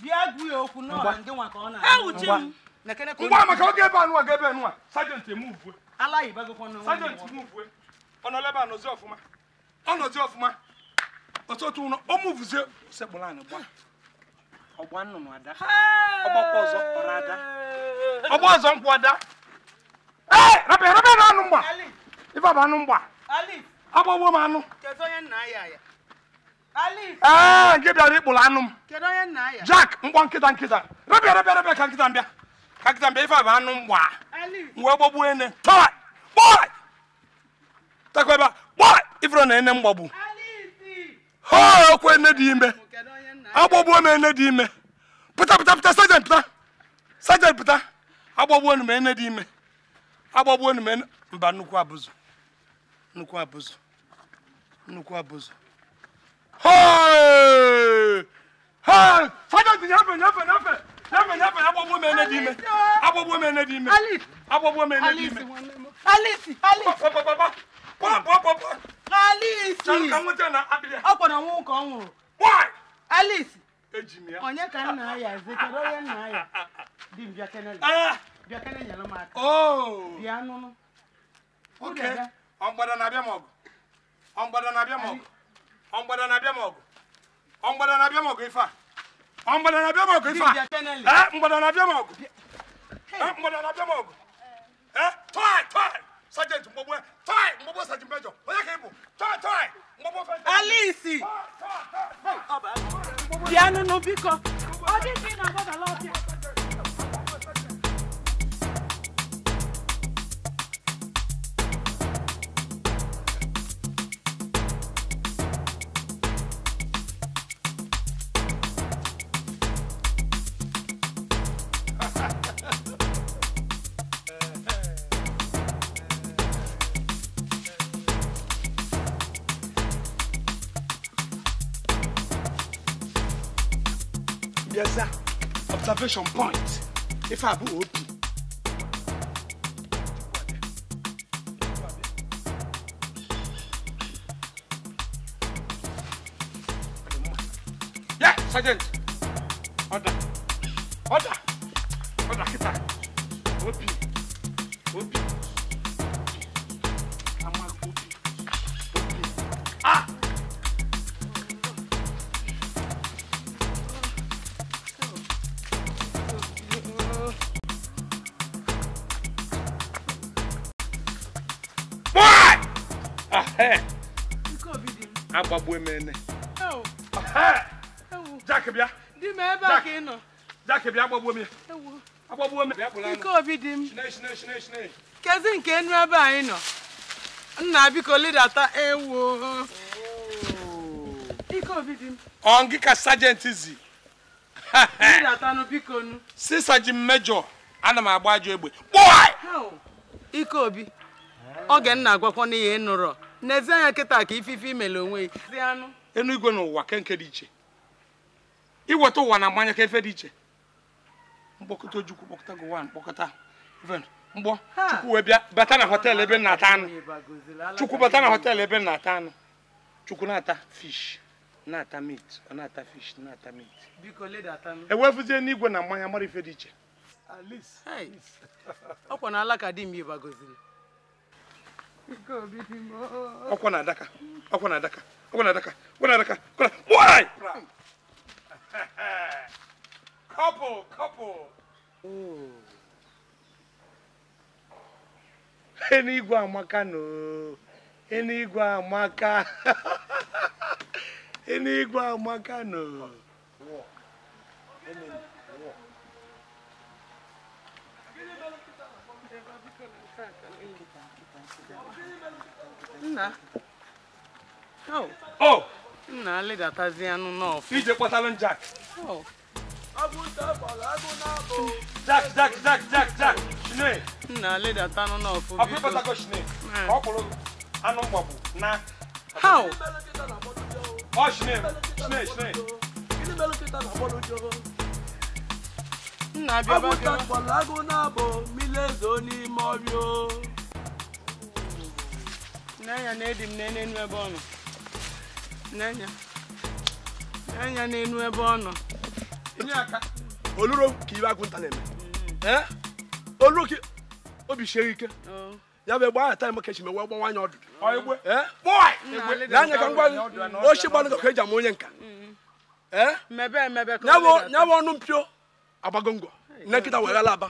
ngwa maka oge ebe anụwa ga ebe anụwa sajenti emuvue sajenti ọ ọnọla ebe anọzi ọfụma nọzi ọfụma ọtụtụ ụlọ o muvuzie sekpụrụ gba ọgba nnụnụ ada ọgbakwa ọzọ kpọrọ ada ọgba ọzọ nkwụ ada ee rabịa rabịa na anụ mgba ife bụ anụ mgba agbagbo m anụ ee ah, nke bịara ịkpụrụ anụ m jack mkpọ nkịta nkịta rebịa rebịa rebịa ka nkịta mbịa ka nkịta mbịa ife a bụ anụ m gbaa wee gbagbuo ene takwa ebe a kpọ ifere na ene m gbagbu ha okwu ene dị ime agbagbuo m ene dị ime pụta pụta pụta sajent pụta sajent pụta agbagbuo nu m ene dị ime agbagbuo nu m ene mba nnukwu abụzụ nnukwu abụzụ nnukwu abụzụ fada dị na abịa ọ ọ mgbada na-abịa ọ ọ̀ngbọ̀dọ̀ na abịa m ọgụ ọ̀ngbọ̀dọ̀ na abịa m ọgụ ife a na abịa m ọgụ ife a ee na abịa m ọgụ ee mgbọdọ na abịa m ọgụ ee tọị tọị sajenti mgbọgbọ tọị mgbọgbọ sajenti mejọ onye ka ị bụ tọị tọị mgbọgbọ fejọ alisi bịa nụnụ biko ọ dịghị na agbadala ọbịa observation point if I would. Yeah, Sergeant. agbagbu emene jak bịa jak bịa agbagbuo m ya agbagbuo m obi m kezi nke enu ebe anyị nọ nna biko lidata ewo ike obi dị m ka sajenti zi lidatanụ biko nu si sajin mejọ ana m agba ajọ egbe kpụọ ike obi oge nna agwakwana ihe nụrọ na-eze anya kịta ka ifife imele onwe ya enu igwe n'ụwa kenke dị iche iweta ụwa na mmanya ka efe dị iche mkpọkọta ojukwu kpọkọta gụwa mkpọkọta mgbọ chukwu wee bịa bata na họtel ebe na-ata anụ chukwu bata na họtel ebe na-ata anụ chukwu na-ata fish na-ata mit ọ na-ata fish na-ata mit ewefụzie e n'igwe na mmanya mara ife dị iche ọkwa na alaka di m ibagoziri ọkwa na adaka ọkwa na adaka ọkwa na adaka ọkwa na adaka ọkwa na why couple couple oh. igwe amaka no igwe amaka igwe amaka no Nna. Oh. Oh. Nna le datazi anu n'ofi. Ije patalon Jack. Oh. Jack, Jack, Jack, Jack, Jack. Shine. Nna le data anu n'ofi. Api patako shine. Ọkpụrụ eh. anụ mgbagbu na. How? Oh, shine, shine, shine. Nna bịa bịa. Ọgwụ takpọrọ agụ na-abụ mmiri ezo n'ime ọrịa. n'anya na edi m ebe ọ nọ n'anya n'anya n'enu ebe ọ nọ oluro ka iwe agụnta na-eme mm-hmm. eh? oluro ka obi sie ike oh. ya bụ egbe aha taa ka echi mewe gbanwa anya ọdụdụ n'anya ka gbanụ ka eji ama onye nka mm-hmm. eh? ya bụ ọnụ mpio agbago nne nkịta were aba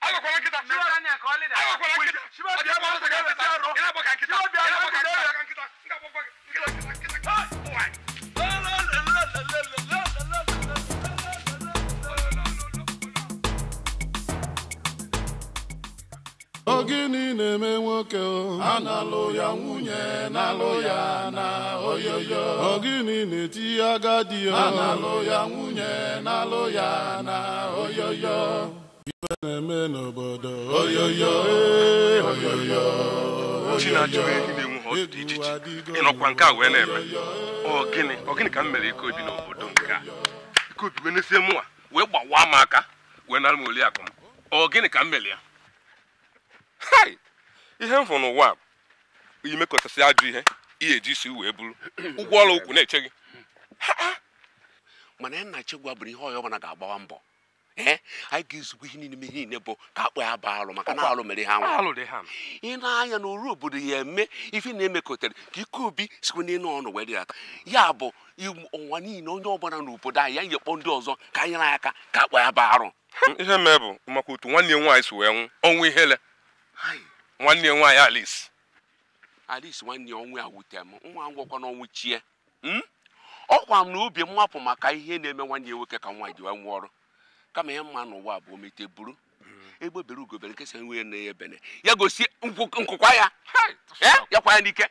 agbakwala nkịta ogini na-eme nwoke ana-alụ ya nwunye na-alụ ya na oyoyo ogini na-eti agadi o ana-alụ ya nwunye na-alụ ya na oyoyo na-eme n'obodo oyoyo oyoyo ochi na-achọghị ị na-enwu ha ọtụtụ ijiji ịnọkwa nke a wee na-eme ọ gịnị ka m mere ike obi n'obodo nke a ike obi wee nesie mụnwa wee gbawa m aka wee nara m oli akụ m ọ gịnị ka m mere ya ihe m hụrụ n'ụwa bụ imekọtasị ajụ ihe ihe eji isi wee bụrụ ụgwọ ọrụ ụkwụ na-eche gị mana nna chigwa bụrụ ihe ọyọ mana ga-agbawa mbọ Eh? anyị ga-ezugbo ihe niile ihe niile bụ ka akpụ ya baa alụ maka na alụ mere ha nwa ị na-anya na oru obodo ya eme ife na-emekọtara ka ike obi sikwa n'elu ọnụ wee dịata ya bụ ụwa niile onye ọbụla n'obodo anyị ya nyekpọ ndị ọzọ ka anyị na aka ka akpụ ya baa arụ hmm, ihe mee bụ maka otu nwanne ya nwaanyị si wee nwụ ọnwụ ihele nwanne ya nwaanyị Alice Alice nwanne ya ọnwụ ya wute m nwa ngwakwa n'ọnwụ chie hmm? ọkwa m na obi mmapụ maka ihe na-eme nwanne nwoke ka nwa ji wee nwụọ ọrụ kama ya mma n'ụwa bụ omete buru hmm. egbe bere ugo nke nkesa nwunye na ya bene ya gosi nkwụkwa ya eh? ya kwa ya n'ike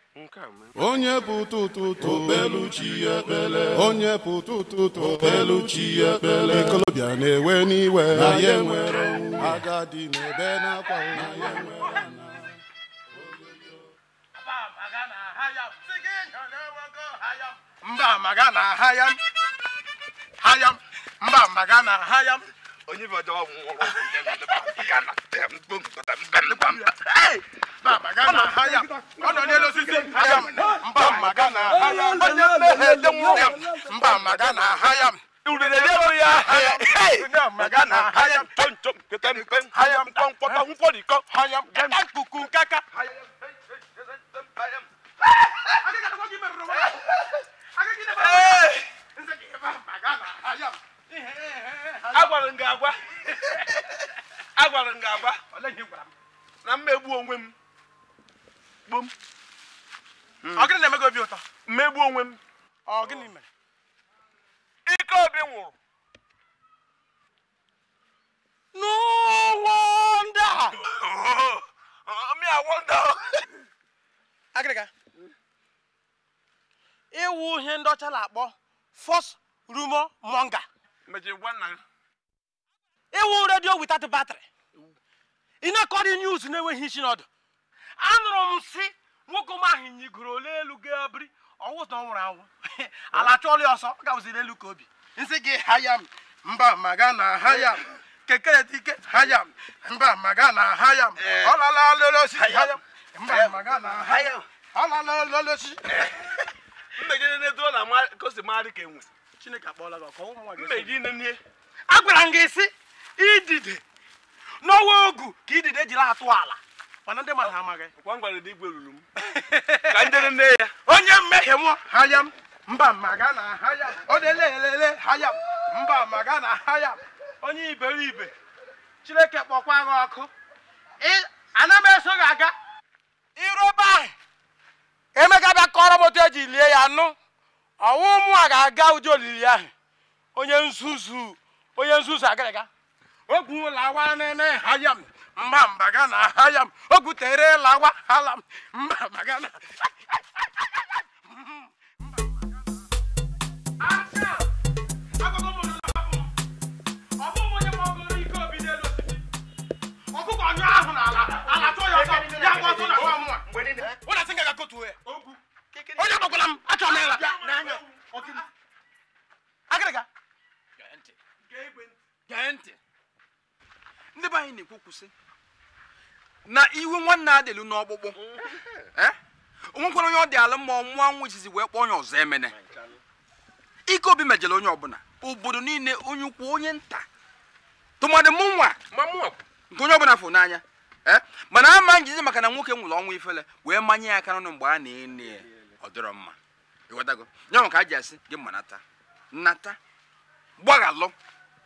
onye bụ tụtụtụ obelu chi ya ekpele onye bụ tụtụtụ obelu chi ya ekpele ikolobịa na-ewe n'iwe na ya nwere agadi na-ebe n'akwa na ya nwere mba maga na ahayam hayam mba maga na ha ya onye bọjọ ọgwụgwọ ọnọ n'elu osisi mba maga na ha ya onye mmehie dị nwụrụ mba maga na ha ya nkwụkwọ kaka Hey! agwara m gị agwa agwara m gị agwa na mmegbu onwe m gbom ọ gịnị na-eme gị obi ụtọ mmegbu onwe m ọ gịnị mere ike obi nwụrụ n'ụwa ndị a mmiri awọ ndị agịrịga ịwụ ihe ndị ọcha na-akpọ fos rumo monga ịwụ redio without battery ị na-ekọrị news na-enweghị isi n'ọdụ anụrụ m si nwoke m ahụ nyigoro ole elu ga biri ọwụta ọ nwụrụ anwụ ala chọọla ya ọsọ gawụziri elu ka obi nsị gị haya m mba maga na haya m keke dike haya m mba maga na haya m ọ lala lele osisi haya m mba maga na haya m ọ lala lele osisi mmegide na-edola ka o si marị ka enwe agwara m gị sị idide n'ọnwa ogu ka idide jiri atụ ala mana ndị mmadụ amaghị onye mmehie nwa haya m mba maga na haya onye lelele haya m mba maga na haya onye iberibe chineke kpọkwa gị ọkụ ana m eso gị aga irobe ahụ emeka bịa kọrọ m otu eji lie ya nụ ọnwụ a ga-aga ụdị olili ahụ onye nzuzu onye nzuzu o ogwu lawa ene ha ya m mba mba ga na ha ya m tere lawa hala m mba mba ga na ọkụkọ ahụ ala ya ọtọ ya ọtọ na nwa ụlọ sị nga ga ya onye agbakwala m achọla ya agịrịga gee ntị ndị be anyị na-ekwu sị na iwe nwanne adịlu n'ọkpụkpụ eh? eh? onwekwara onye ọ dị ala mmụọ nwa nwa izizi wee kpọọ onye ọzọ emene ike obi mejere onye ọbụla obodo niile onye ukwu onye nta tụmadị mụ nwa nke onye ọbụla fụ n'anya eh? mana ama njizi maka na nwoke nwụrụ ọnwụ ifele wee manye ya aka n'ọnụ mgbe a na-ene ya ọ dịrọ mma ịghọtago nyanwa ka a ji asị gị nata nnata gbaghalụ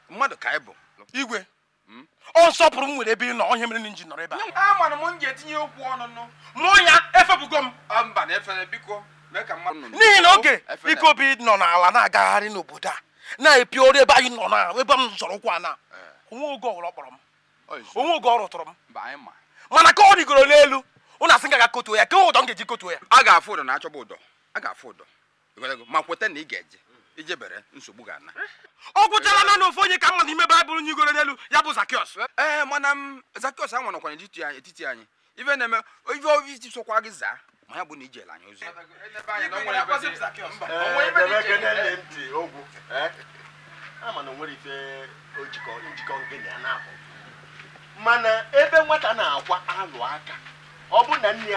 mmadụ ka anyị bụ igwe hmm? ọ nsọpụrụ m nwere ebe ị nọ onye mere nji nọrọ ebe a a m m ji etinye okwu ọnụnụ mụọ ya efebugo m mba na efere biko n'ihi na oge ikobi nọ n'ala na-agagharị n'obodo a na-epi ọrụ ebe anyị nọ na ebe m zọrọ ụkwụ ana eh. onwe oge ọkpọrọ m onwe oge ọrụ rụtụrụ m mana ka ọ rigoro n'elu ụnụ asị gaga kotuo ya kewe ụdọ m ga-eji kotuo ya a ga-afụ ụdọ na achọba ụdọ a ga-afụ ụdọ ma kweta na ị ga-eje ijebere nsogbu ga-ana ọ gwụchala na ofu onye ka mma n'ime baịbụl nye igoro n'elu ya bụ zakiọs ee mana m zakiọs a nwanọkwa n'etiti anyị ife na-eme ife obi isi sokwa gị zaa ma ya bụ na ijela anyị ozi mana ebe nwata na-akwa alụ aka ọ bụ na nne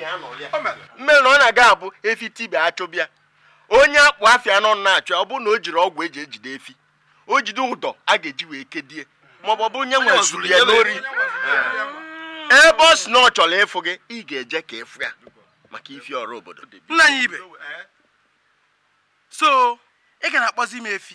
ya ọ na-aga abụ efi tibe achụbịa onye akpụ afia nọ na achọ ọ bụ na o jiri ọgwụ eji ejide efi o jide ụdọ a ga-eji wee kedie maọbụ ọ bụ nye nwe zuru ya n'ori eh. ebe ọ si na ọ chọrọ ịfụ gị ị ga-eje ka ịfụ ya maka ifi ọrụ obodo nna anyị ibe eh. so ị ga na-akpọzi m efi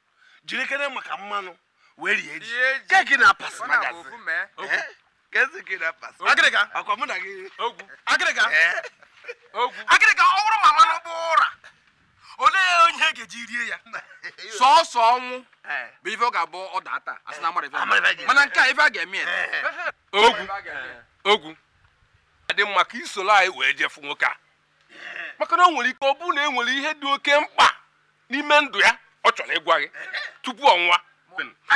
jirikere maka mmanụ wee rie ji keki na pas eh? eh? agịrịga ọ bụrụ ma mmanụ bụ ụra olee onye ga-eji rie ya sọọsọ ọnwụ eh. bụ ife ọ ga-abụ ọ daa asị na mana nke a ife a ga-eme ogwu ogwu adị mma ka isoro anyị wee jefu nwoke a maka na o nwere ike ọ bụrụ na e nwere ihe dị oke mkpa n'ime ndụ ya ọ chọrọ ịgwa gị tupu ọnwa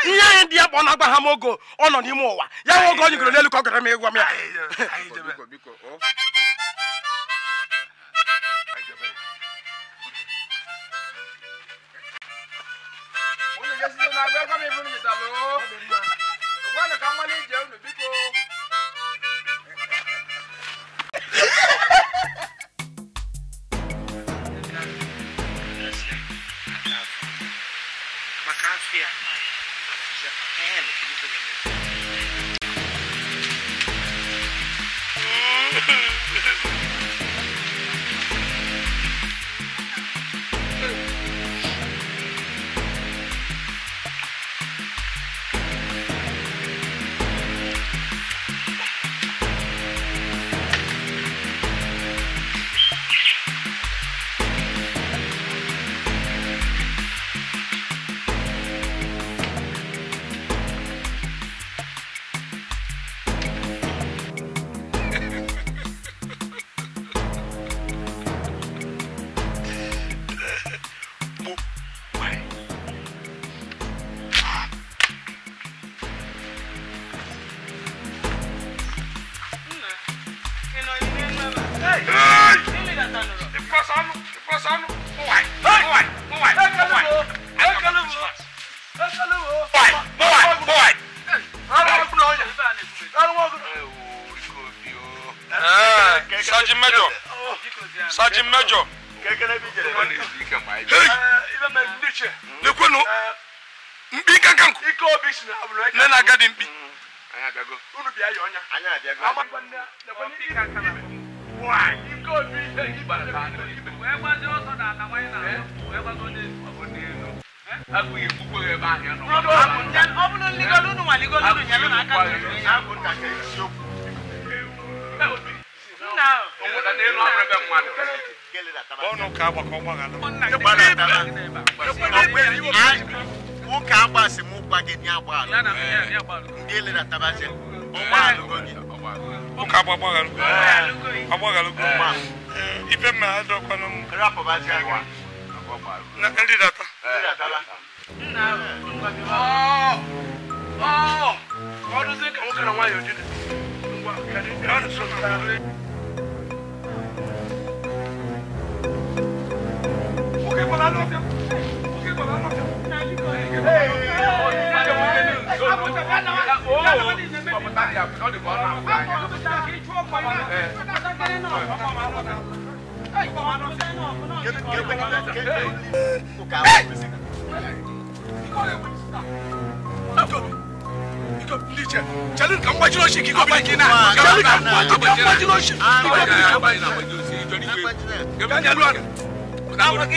ihe anyị dị ya bụ ọ na-agba ha m ogo ọ nọ n'ime ụwa ya nwe oge ọ nyegoro n'elu ka ọ gara m ịgwa m ya Ha ha ha!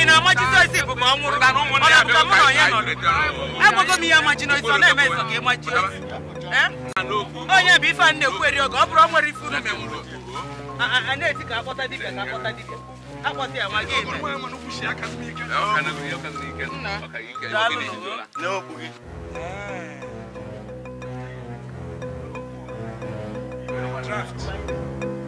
na amachisi é. draft.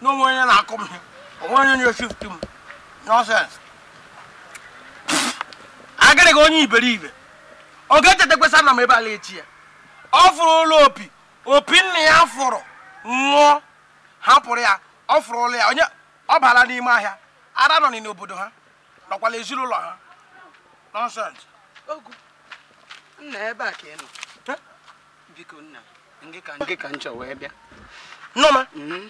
na onwe onye na-akụ m ihe onwe onye nye eshift m nọsens agịrịghị onye iberibe ọ ga-echeta kwesa na m ebe ala echi ya ọ fụrụ ụlọ opi opi nna ya fụrụ nwụọ hapụrụ ya ọ fụrụ ụlọ ya onye ọ bara n'ime ahịa ara nọ n'obodo ha nọkwala ezinụlọ ha nọnsens nna ebe a ka ị nọ biko nna nke ka nchọ wee bịa nnọma mm-hmm.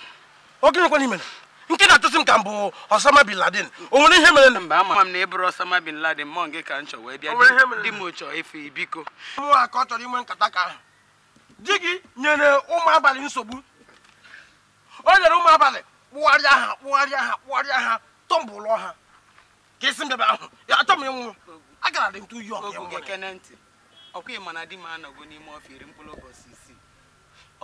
oge okenekwana imere nke na-atụsi m ka mbụ Osama bin Laden o nwere ihe mere mba ama m na ịbụrụ Osama bin Laden mọ nke ka m chọ wee bịa di m chọọ efe biko ụmụnwa ka ọ chọrọ inwe nkata ka ahụ di gị nyere ụmụ abalị nsogbu o nyere ụmụ abalị kpụgharịa ha kpụgharịa ha kpụgharịa ha tọmbụlụ ha ka esi mbebe ahụ ya achọ m ịnwụ agara dị m tụ yi ọkwa mana m anọgo n'ime ọfịa iri mkpụrụ ụbọchị isii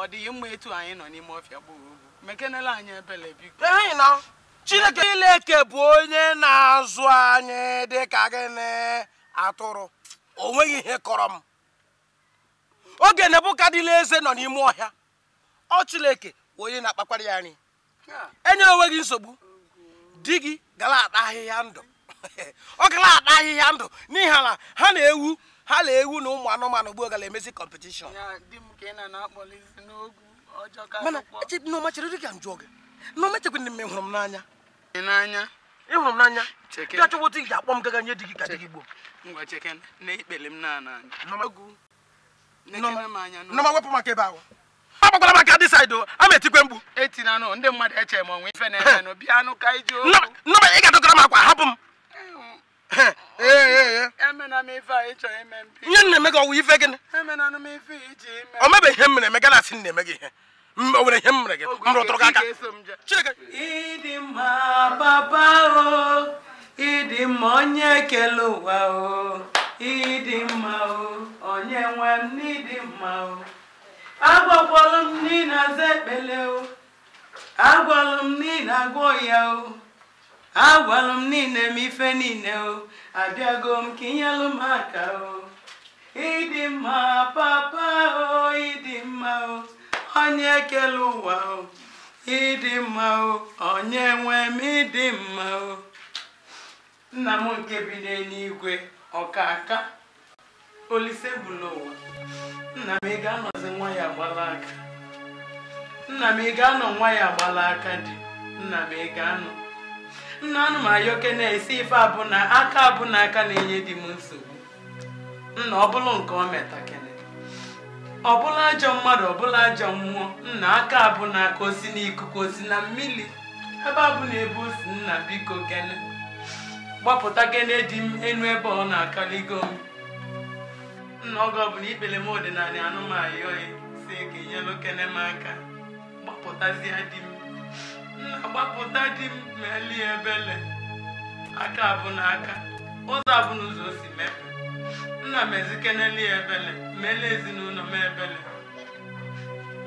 ọ dịghị mma etu anyị nọ n'ime ọfịa gboo mekenela na chineke ileke bụ onye na-azụ anyị ka gịnị atụrụ o nweghị ihe kọrọ m oge nebukadila eze nọ n'ime ọhịa ọ chileke onye na-akpakwara ya anyị enye onwe gị nsogbu di gị gara ata ahịhịa ndụ ọ gara ata ahịhịa ndụ n'ihi na ha na-ewu ha na-ewu na ụmụ anụmanụ gboo gara emezi kọmpetishọn mana nneọma chere dị ka gị jụọ gị nneọma echekwena m ịhụrụ m n'anya ịhụrụ m n'anya dị achọgwa otu ga akpọ m gaga nye di gị ka dị gị gboo nneọma wepụ maka ebe ahụ m dị saịdị a ma etikwe mgbu ị ga-adọtara m akwa hapụ m Eh, eh, eh. ihe nna eme gị ọwụ ife gịnị ọ mebe ihe mere eme gana asị nna eme gị ihe o nwere ihe m mere gị m rụtụrụ gị aka ịdị mma onye ụwa ịdị mma onye nwe m n'ịdị mma m n'ịna aza ekpele m n'ịna agwọ ya agwalụ m niile m ife niile o abịago m ka inyelụ m aka o ịdị mma papa o ịdị mma o onye ekele ụwa o ịdị mma o onye nwe m ịdị mma o nna m nke bi n'eluigwe ọka aka olise bụla ụwa nna m ị ga-anọzi nwa ya aka nna m ị anọ nwa ya aka dị nna m ị anọ nna anụmayoke na-esi ife na aka abụna aka na-enye di m nsogbu nna ọbụlụ nke ọ metakene ọbụla ajọ mmadụ ọbụla ajọ mmụọ nna aka na aka osi n'ikuku osi na mmiri ebe abụna ebe osi nna biko gene gbapụta gene dị m enu ebe ọ na-akaligo m nna oge ọbụla ikpere m ọdịnala anụmayoyi e, si ka inyelụ kene m aka gbapụtazie di m agbapụta di m meli ebele aka abụ n'aka ụzọ abụ ụzọ si mepe nna m ezikeneli ebele mele ezinụlọ m ebele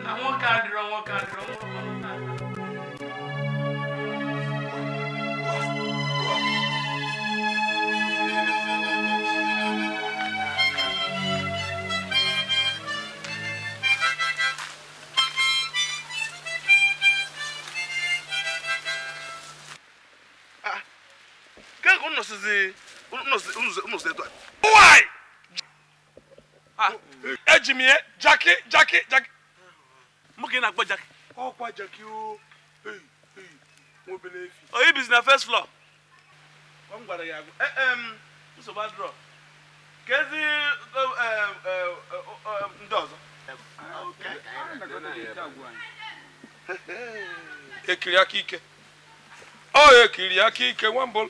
na nwoke adịrọ nwoke adịrọ nwoke nke ha jaki jaki jaki mụ ka ị na-akpọ jaki ọkwa jaki o ah. oh, bizi oh, na first floor ya eh, kezi ndị eh, eh, ọzọ ekiri aka ike ọ oh, ekiri aka ike nwambol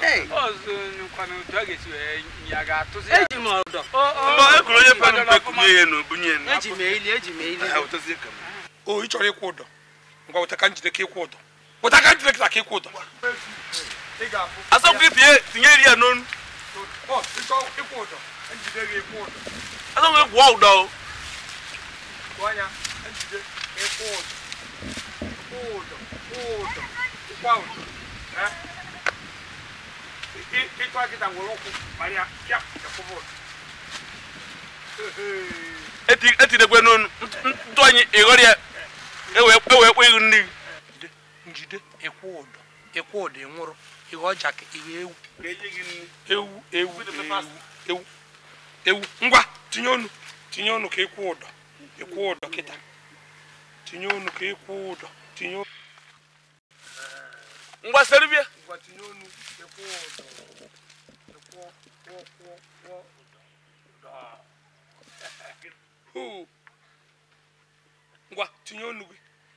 Hey. Oh, so you come to get you a yagato. Hey, you know. Oh, oh, oh, you put up with me and Bunyan. Ejimeli, Ejimeli. How does it come? Oh, each other quarter. Go to country the cake quarter. What I can't take a cake quarter. I saw people here, Tingeria known. Oh, it's all a quarter. And you did a quarter. I don't have wow, though. Guanya, and you did a quarter. Quarter, quarter, quarter. Huh? ịtụ akịta nwere ụkwụ marịa ya ekwụbụrụ etidekwe n'onu ntụ ya ewee kpọ ihu njide ịkwụ ụdọ ịkwụ ụdọ ihe ọja ka tinye ngwa serbia ngwa tinye onu gị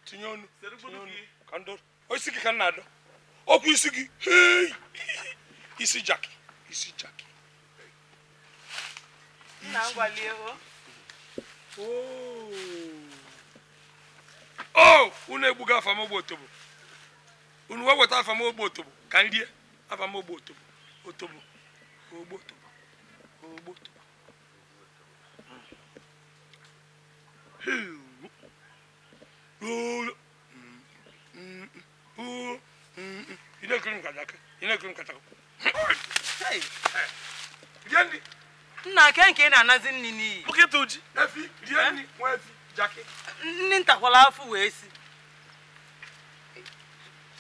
tinye onu tinye isi gị ka m na-adọ ọkwa isi gị isi jaki isi jaki o oh, unu egbugo otobo unu wee weta afamogbo otobo ka m rie otobo otobo otobo otobo nna nke nke ị na-anazi nri n'iyi eh? nri ntakwala afọ wee si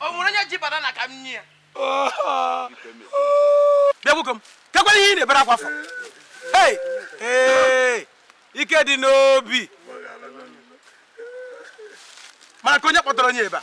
o nwere onye ji banana ka m nye ya bịagbugo m kekwala ihe ị na-ebere akwa afọ ike dị n'obi mara ka onye kpọtara onye ebe a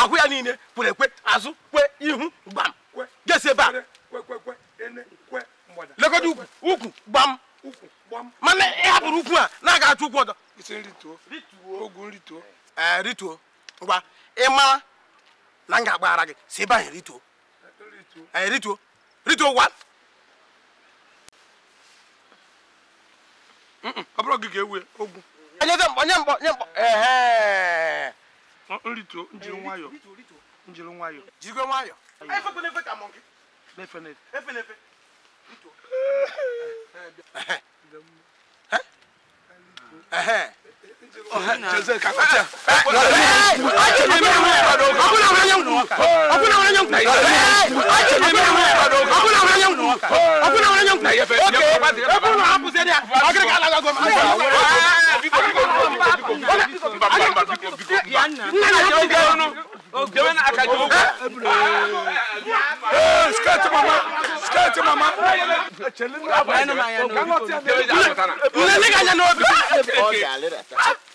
ahụ ya niile kwere ekwe azụ kwe ihu gbam gesi ebe a lekọta ukwu gbam mana ị ukwu a na-aga achụ ukwu ọzọ rituo ngwa ị mara na m ga-agbaghara gị si ebe anyị rituo rituo rituo gwa ọ bụrụ gị ga-ewe ogwu onye mkpọ mkpọ mkpọ nrituo njiri nwayọ njiri nwayọ jigwe nwayọ efekwenefe ka mọ gị efenefe efenefe rituo Skirt mama, skirt mama. Nne ne ka nya n'obi.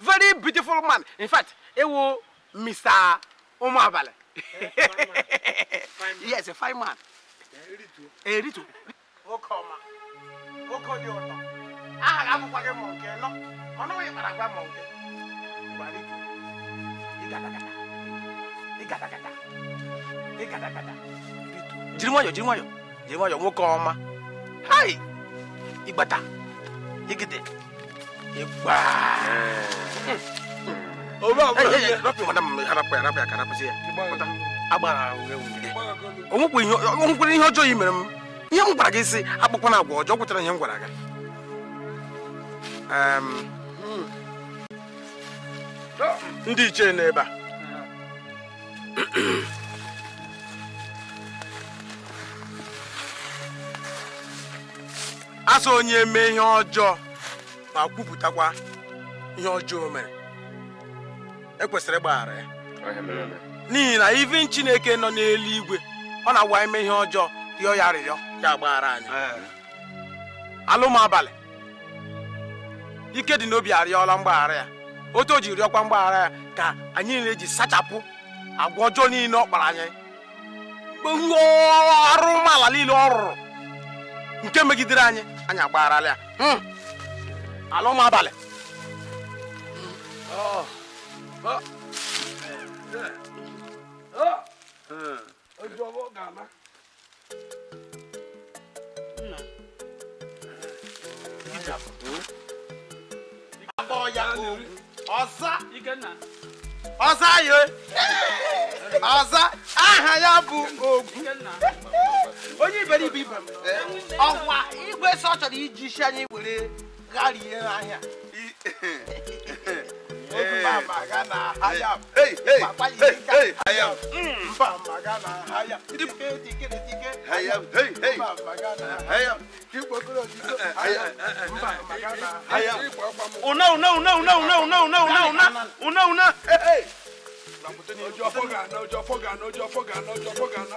very beautiful man in fact ẹ wo mr ọmọ abalẹ yes a fine man eri to. o kọ ọma o kọ di ọtọ aha akwụkwọ gị ma nke nọ mana onye kpara agwa ma nke gbara ike ịgadagada ịgadagada ịgadagada jiri nwayọ jiri nwayọ jiri nwayọ nwoke ọma hai ịgbata ịgide onwekwere ihe ọjọọ i mere m ihe m gwara gị si akpụkwana agwa ọjọọ kwụtara ihe m gwara gị ndị ichie n'ebe a asọ onye mee ihe ọjọọ ma kwupụtakwa ihe ọjọọ mere ekwesịrị ịgbaghara ya n'ihi na ivi chineke nọ igwe ọ na-agwa ime ihe ọjọọ rịọ ya arịrịọ ya gbaghara anyị alụm ike dị n'obi arịọla mgbaghara ya otu o ji rịọkwa mgbaghara ya ka anyị na ji sachapụ agwa ọjọọ niile ọ kpara anyị arụmala niile ọ rụrụ nke megidere anyị anyị agbagharala ya hmm. àlọ́ máa oh, oh. Oh, oh, Abọ́ ọ̀yà kò ọ̀sá ọ̀sá yìí ọ̀sá aha ya bụ ogwu onye iberibe ibe ọkwa igwe sọ chọrọ iji isi anya were gari yẹn n'ahịa. Obi ma maga na ahịa m. Papa yi dịka ahịa m. Mba maga na ahịa m. Dike dike dike. Ahịa m. Mba maga na ahịa m. Kigbogoro dike. Ahịa m. Mba maga na ahịa m. Una una una una una una una una una una una. Ọjọ́ fọ́gànà ọjọ́ fọ́gànà ọjọ́ fọ́gànà ọjọ́ fọ́gànà.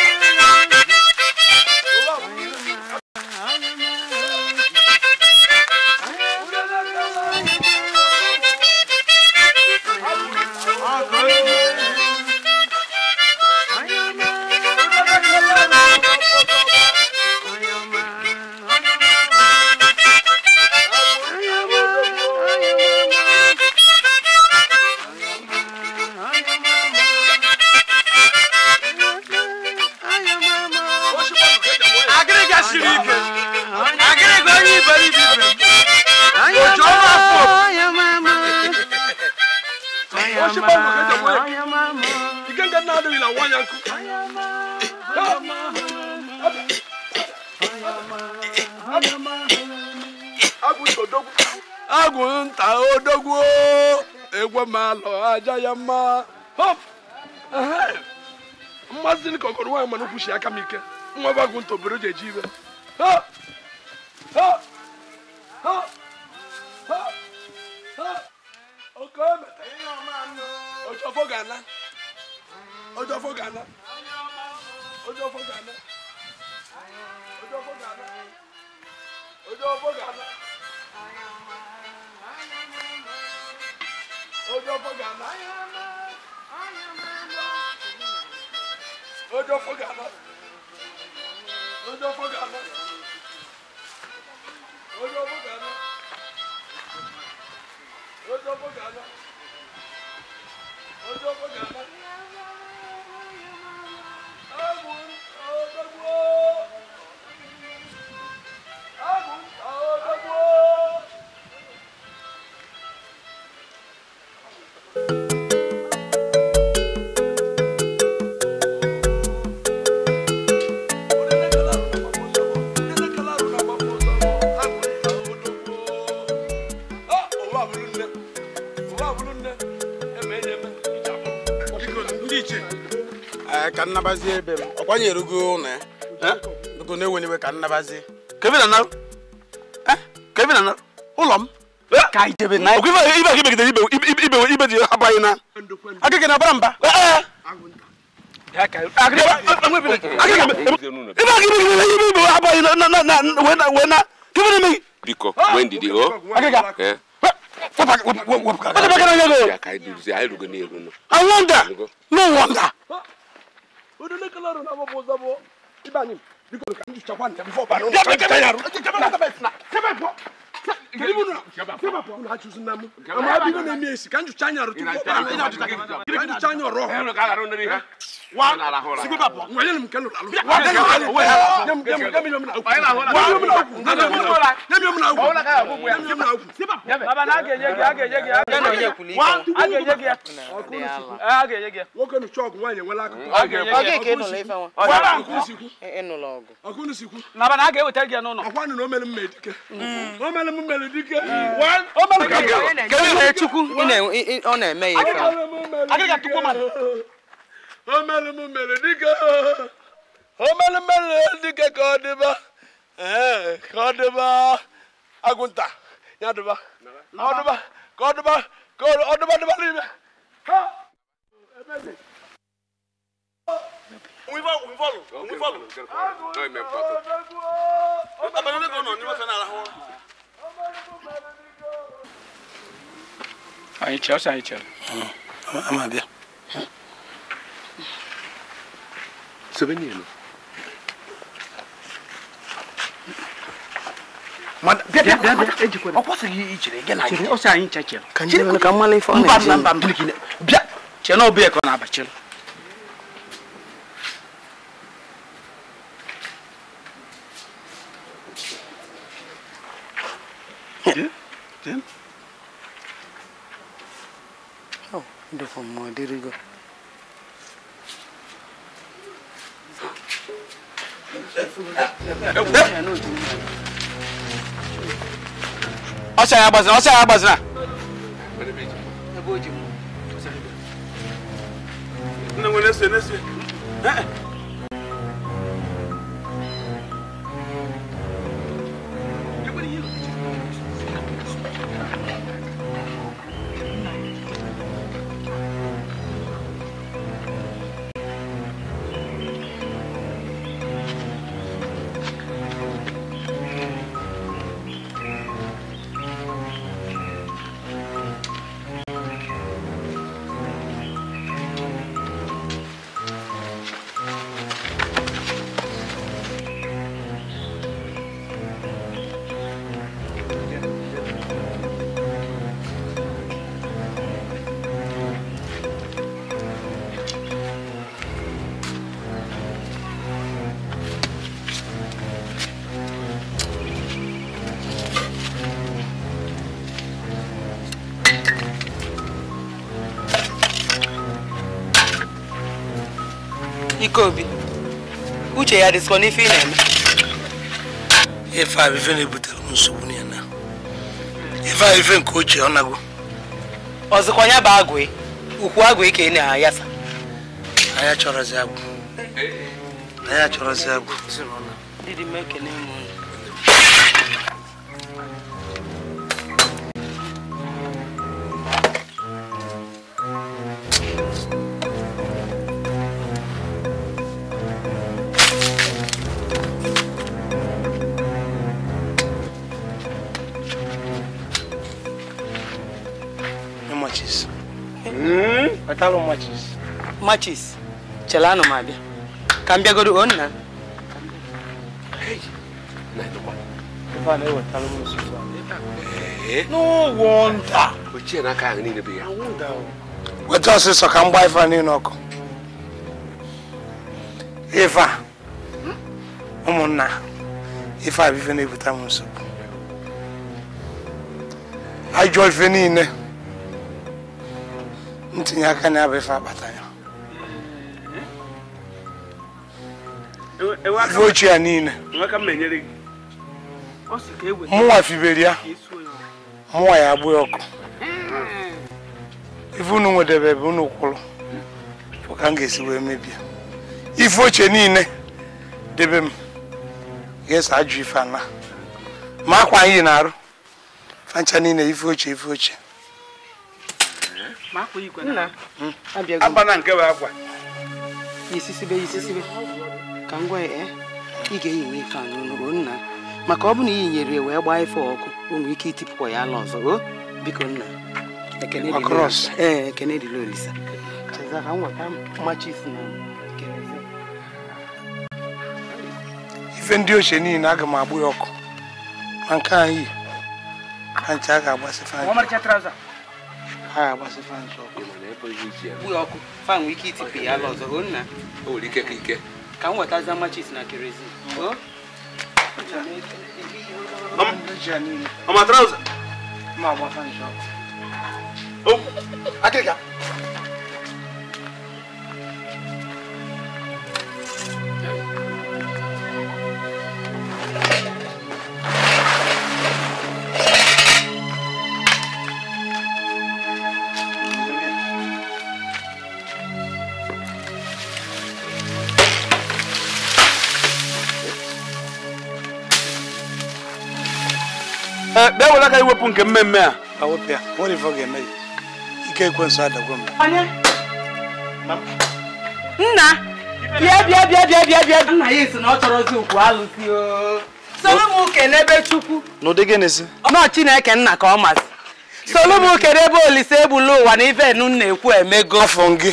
koko malo aja yama hop mmazini koko ruwa manu kushi aka mike nwa ba gunto biro je jibe ha ha ha ha ha oko me ojo fo gana ojo fo gana ojo fo gana Oh, Oh, Oh, Oh, Oh, Oh, Oh, don't don't don't don't don't don't don't forget forget forget forget forget forget Ojo fogana. Ojo fogana. Ojo fogana. Ojo fogana. Ojo fogana. Ojo fogana. Ojo fogana. ka nnabazie ebe m ọ kwanyerego eh? eh? ụlọ ya dugo na-ewe n'iwe ka nnabazie eh? ụlọ m ibe gị na abaghị na udule kalaro na mabo zabo ibanim because kan ju chakwan ya before banu ya ka ya ru chakwan na bes na sebe po kiri bunu sebe po na chu sun namu ama bi na mi esi kan ju chanya ru tu ko banu ina ju chanya ro wa sigi baba wa yɛlɛmu kɛlɛ la wa yɛlɛmu kɛlɛ la wa yɛlɛmu kɛlɛ la wa yɛlɛmu kɛlɛ la wa yɛlɛmu kɛlɛ la wa yɛlɛmu kɛlɛ la wa yɛlɛmu kɛlɛ la baba n'a kɛ yɛgɛ a kɛ yɛgɛ a kɛ yɛgɛ wa a kɛ yɛgɛ a kɛ yɛgɛ o kɛ ni sɔɔku wa yɛlɛ wala kan a kɛ yɛgɛ a kɛ n'o la i fɛ wa wala a k'u siku e n'o la o kɔ a k'u ni siku baba n'a kɛ o tɛ jɛ n'o nɔ a ko a nana o mɛlɛ mɛ dikɛ o mɛlɛ mu mɛlɛ dikɛ wa o mɛlɛ mɛ dikɛ kɛlɛ yɛrɛ tugu i na ɔ na mɛ ye fɛn a kɛ ka tugu ma omele mu mele dike omele mele dike ka ọ dịba ka ọ dịba agụnta ya dịba ọ dịba ka ọ dịba ka ọ dịba dịba n'ime ha ebebe. Mwen valo, mwen valo, mwen valo. Non, mwen valo. Mwen pa banan e konon, mwen fè nan la hon. Ayi chè, ayi chè. Ama bia. Seu veneno. bịa bịa bịa ejikwere ọ kwụsịghị ichere gị na gị ọ sị anyị chechịrị ka ndị eu ka mmanụ ife ọ na-eji mba mba mbili gị bịa chee na ọbụya ka ọ na-abachịrị Oh, wonderful, my dear God. ọsẹ ayabọ sinna ọsẹ ayabọ sinna. ẹ b'o Obi, uche ya dịsịkwa n'ife ị na-eme ife a na-ebutere m nsogbu na ya ife a nke ochie ọ nago ọzọkwa ya bụ agwụ ukwu agwụ ka ị na-ayasa anya chọrọzi agwụ eh, eh. anya chọrọzi agwụ wetarụ machis machis chelanụ m abịa ka m na weta ọsịsọ ka m gbaa ife niile ọkụ ife ụmụnna ife abụ ife na-ebute m nsogbu ajọ ife niile tinye aka n'abụ ife akpata ya ife ochie ya niile e mụnwa fibere ya mụnwa ya agbụ ọkụ ife unu nwedebe ebe unu kwụrụ ka m ga-esi wee mebie ife ochie niile debe m ga-eso ajụ ife ana ma akwa anyị na-arụ fancha niile ife ochie ife ochie abana hmm? hmm? nke bụ akwa isisibe isisibe ka m gwa ya eh? ị ga-eyi nwe ife anyị n'ụlọ nna maka ọ bụ na i nyere wee gbaa ife ọkụ o nwere ike itipụkwa ya ala ọzọ o biko nna ekene dịla nweta mmachi isi ife ndị ochie niile aga m agbụ ya ọkụ ma nke anyị ka ncha a ga ha agbasị ọkụ ọkụ fan nwee ike itipe ya ala ọzọ o ike ka m wetaza machis na kerozin ọma trauza ma agba fan ọkụ Eh, bịa were aka iwepụ nke mmemme a ike ekwensu adagwo m nna bịa bịa bịa nna ya esi na ọ chọrọzi ukwu n'ebe chukwu n'ụdị chineke nna ka ọ masị solu n'ebe olise egbula ụwa na ife nu na-ekwu emego afọ gị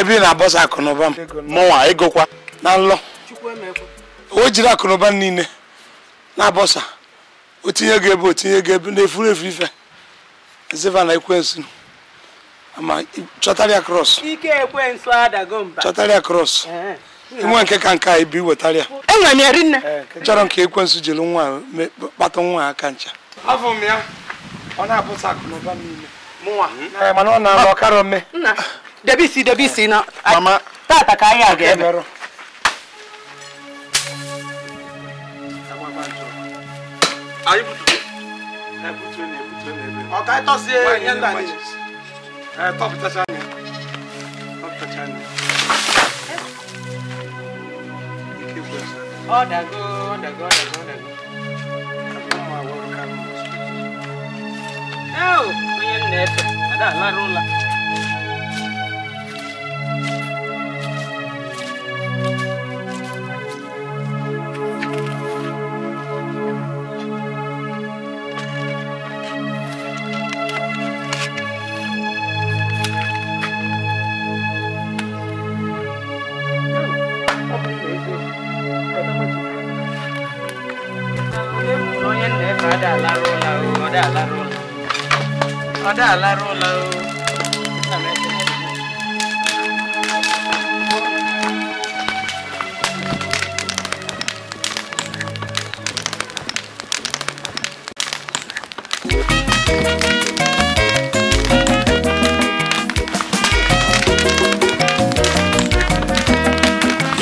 ebe na-abọsa akụnụba m mụnwa na nlọ o jiri akụnụba niile na-abọsa otinye gị ebe otinye gị ebe na-efuru efu ife ziva na ekwensu ama chọtara ya kros chọtara ya kros nwe nke ka nke a ibi wetara ya e chọrọ nke ekwensu jiri nwa kpata nwa aka ncha afọ m ya ọ na-abụsa akụ na mana ọ na-alụ ọkara ome àríbùdùgbò ẹ̀bùtù ẹni ẹ̀bùtù ẹni ẹ̀bẹ̀. ọ̀ka Okay, sí ẹ̀yẹ́ ńlá ni ẹ̀tọ́ fi tẹ́sán ni ẹ̀tọ́ fi tẹ́sán ni. ọ̀dàgó Oh, ọ̀dàgó ọ̀dàgó. àbúrò àwọn ọ̀rọ̀ kan mọ̀ ọ́. ẹ ò onye nna ẹ̀fẹ̀ àdá àlárò ńlá. ọ̀dà aláró la o ọ̀dà aláró la ọ̀dà aláró la o.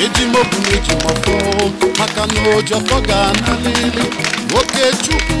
ejimobu na ejimofo maka na lili, ga chukwu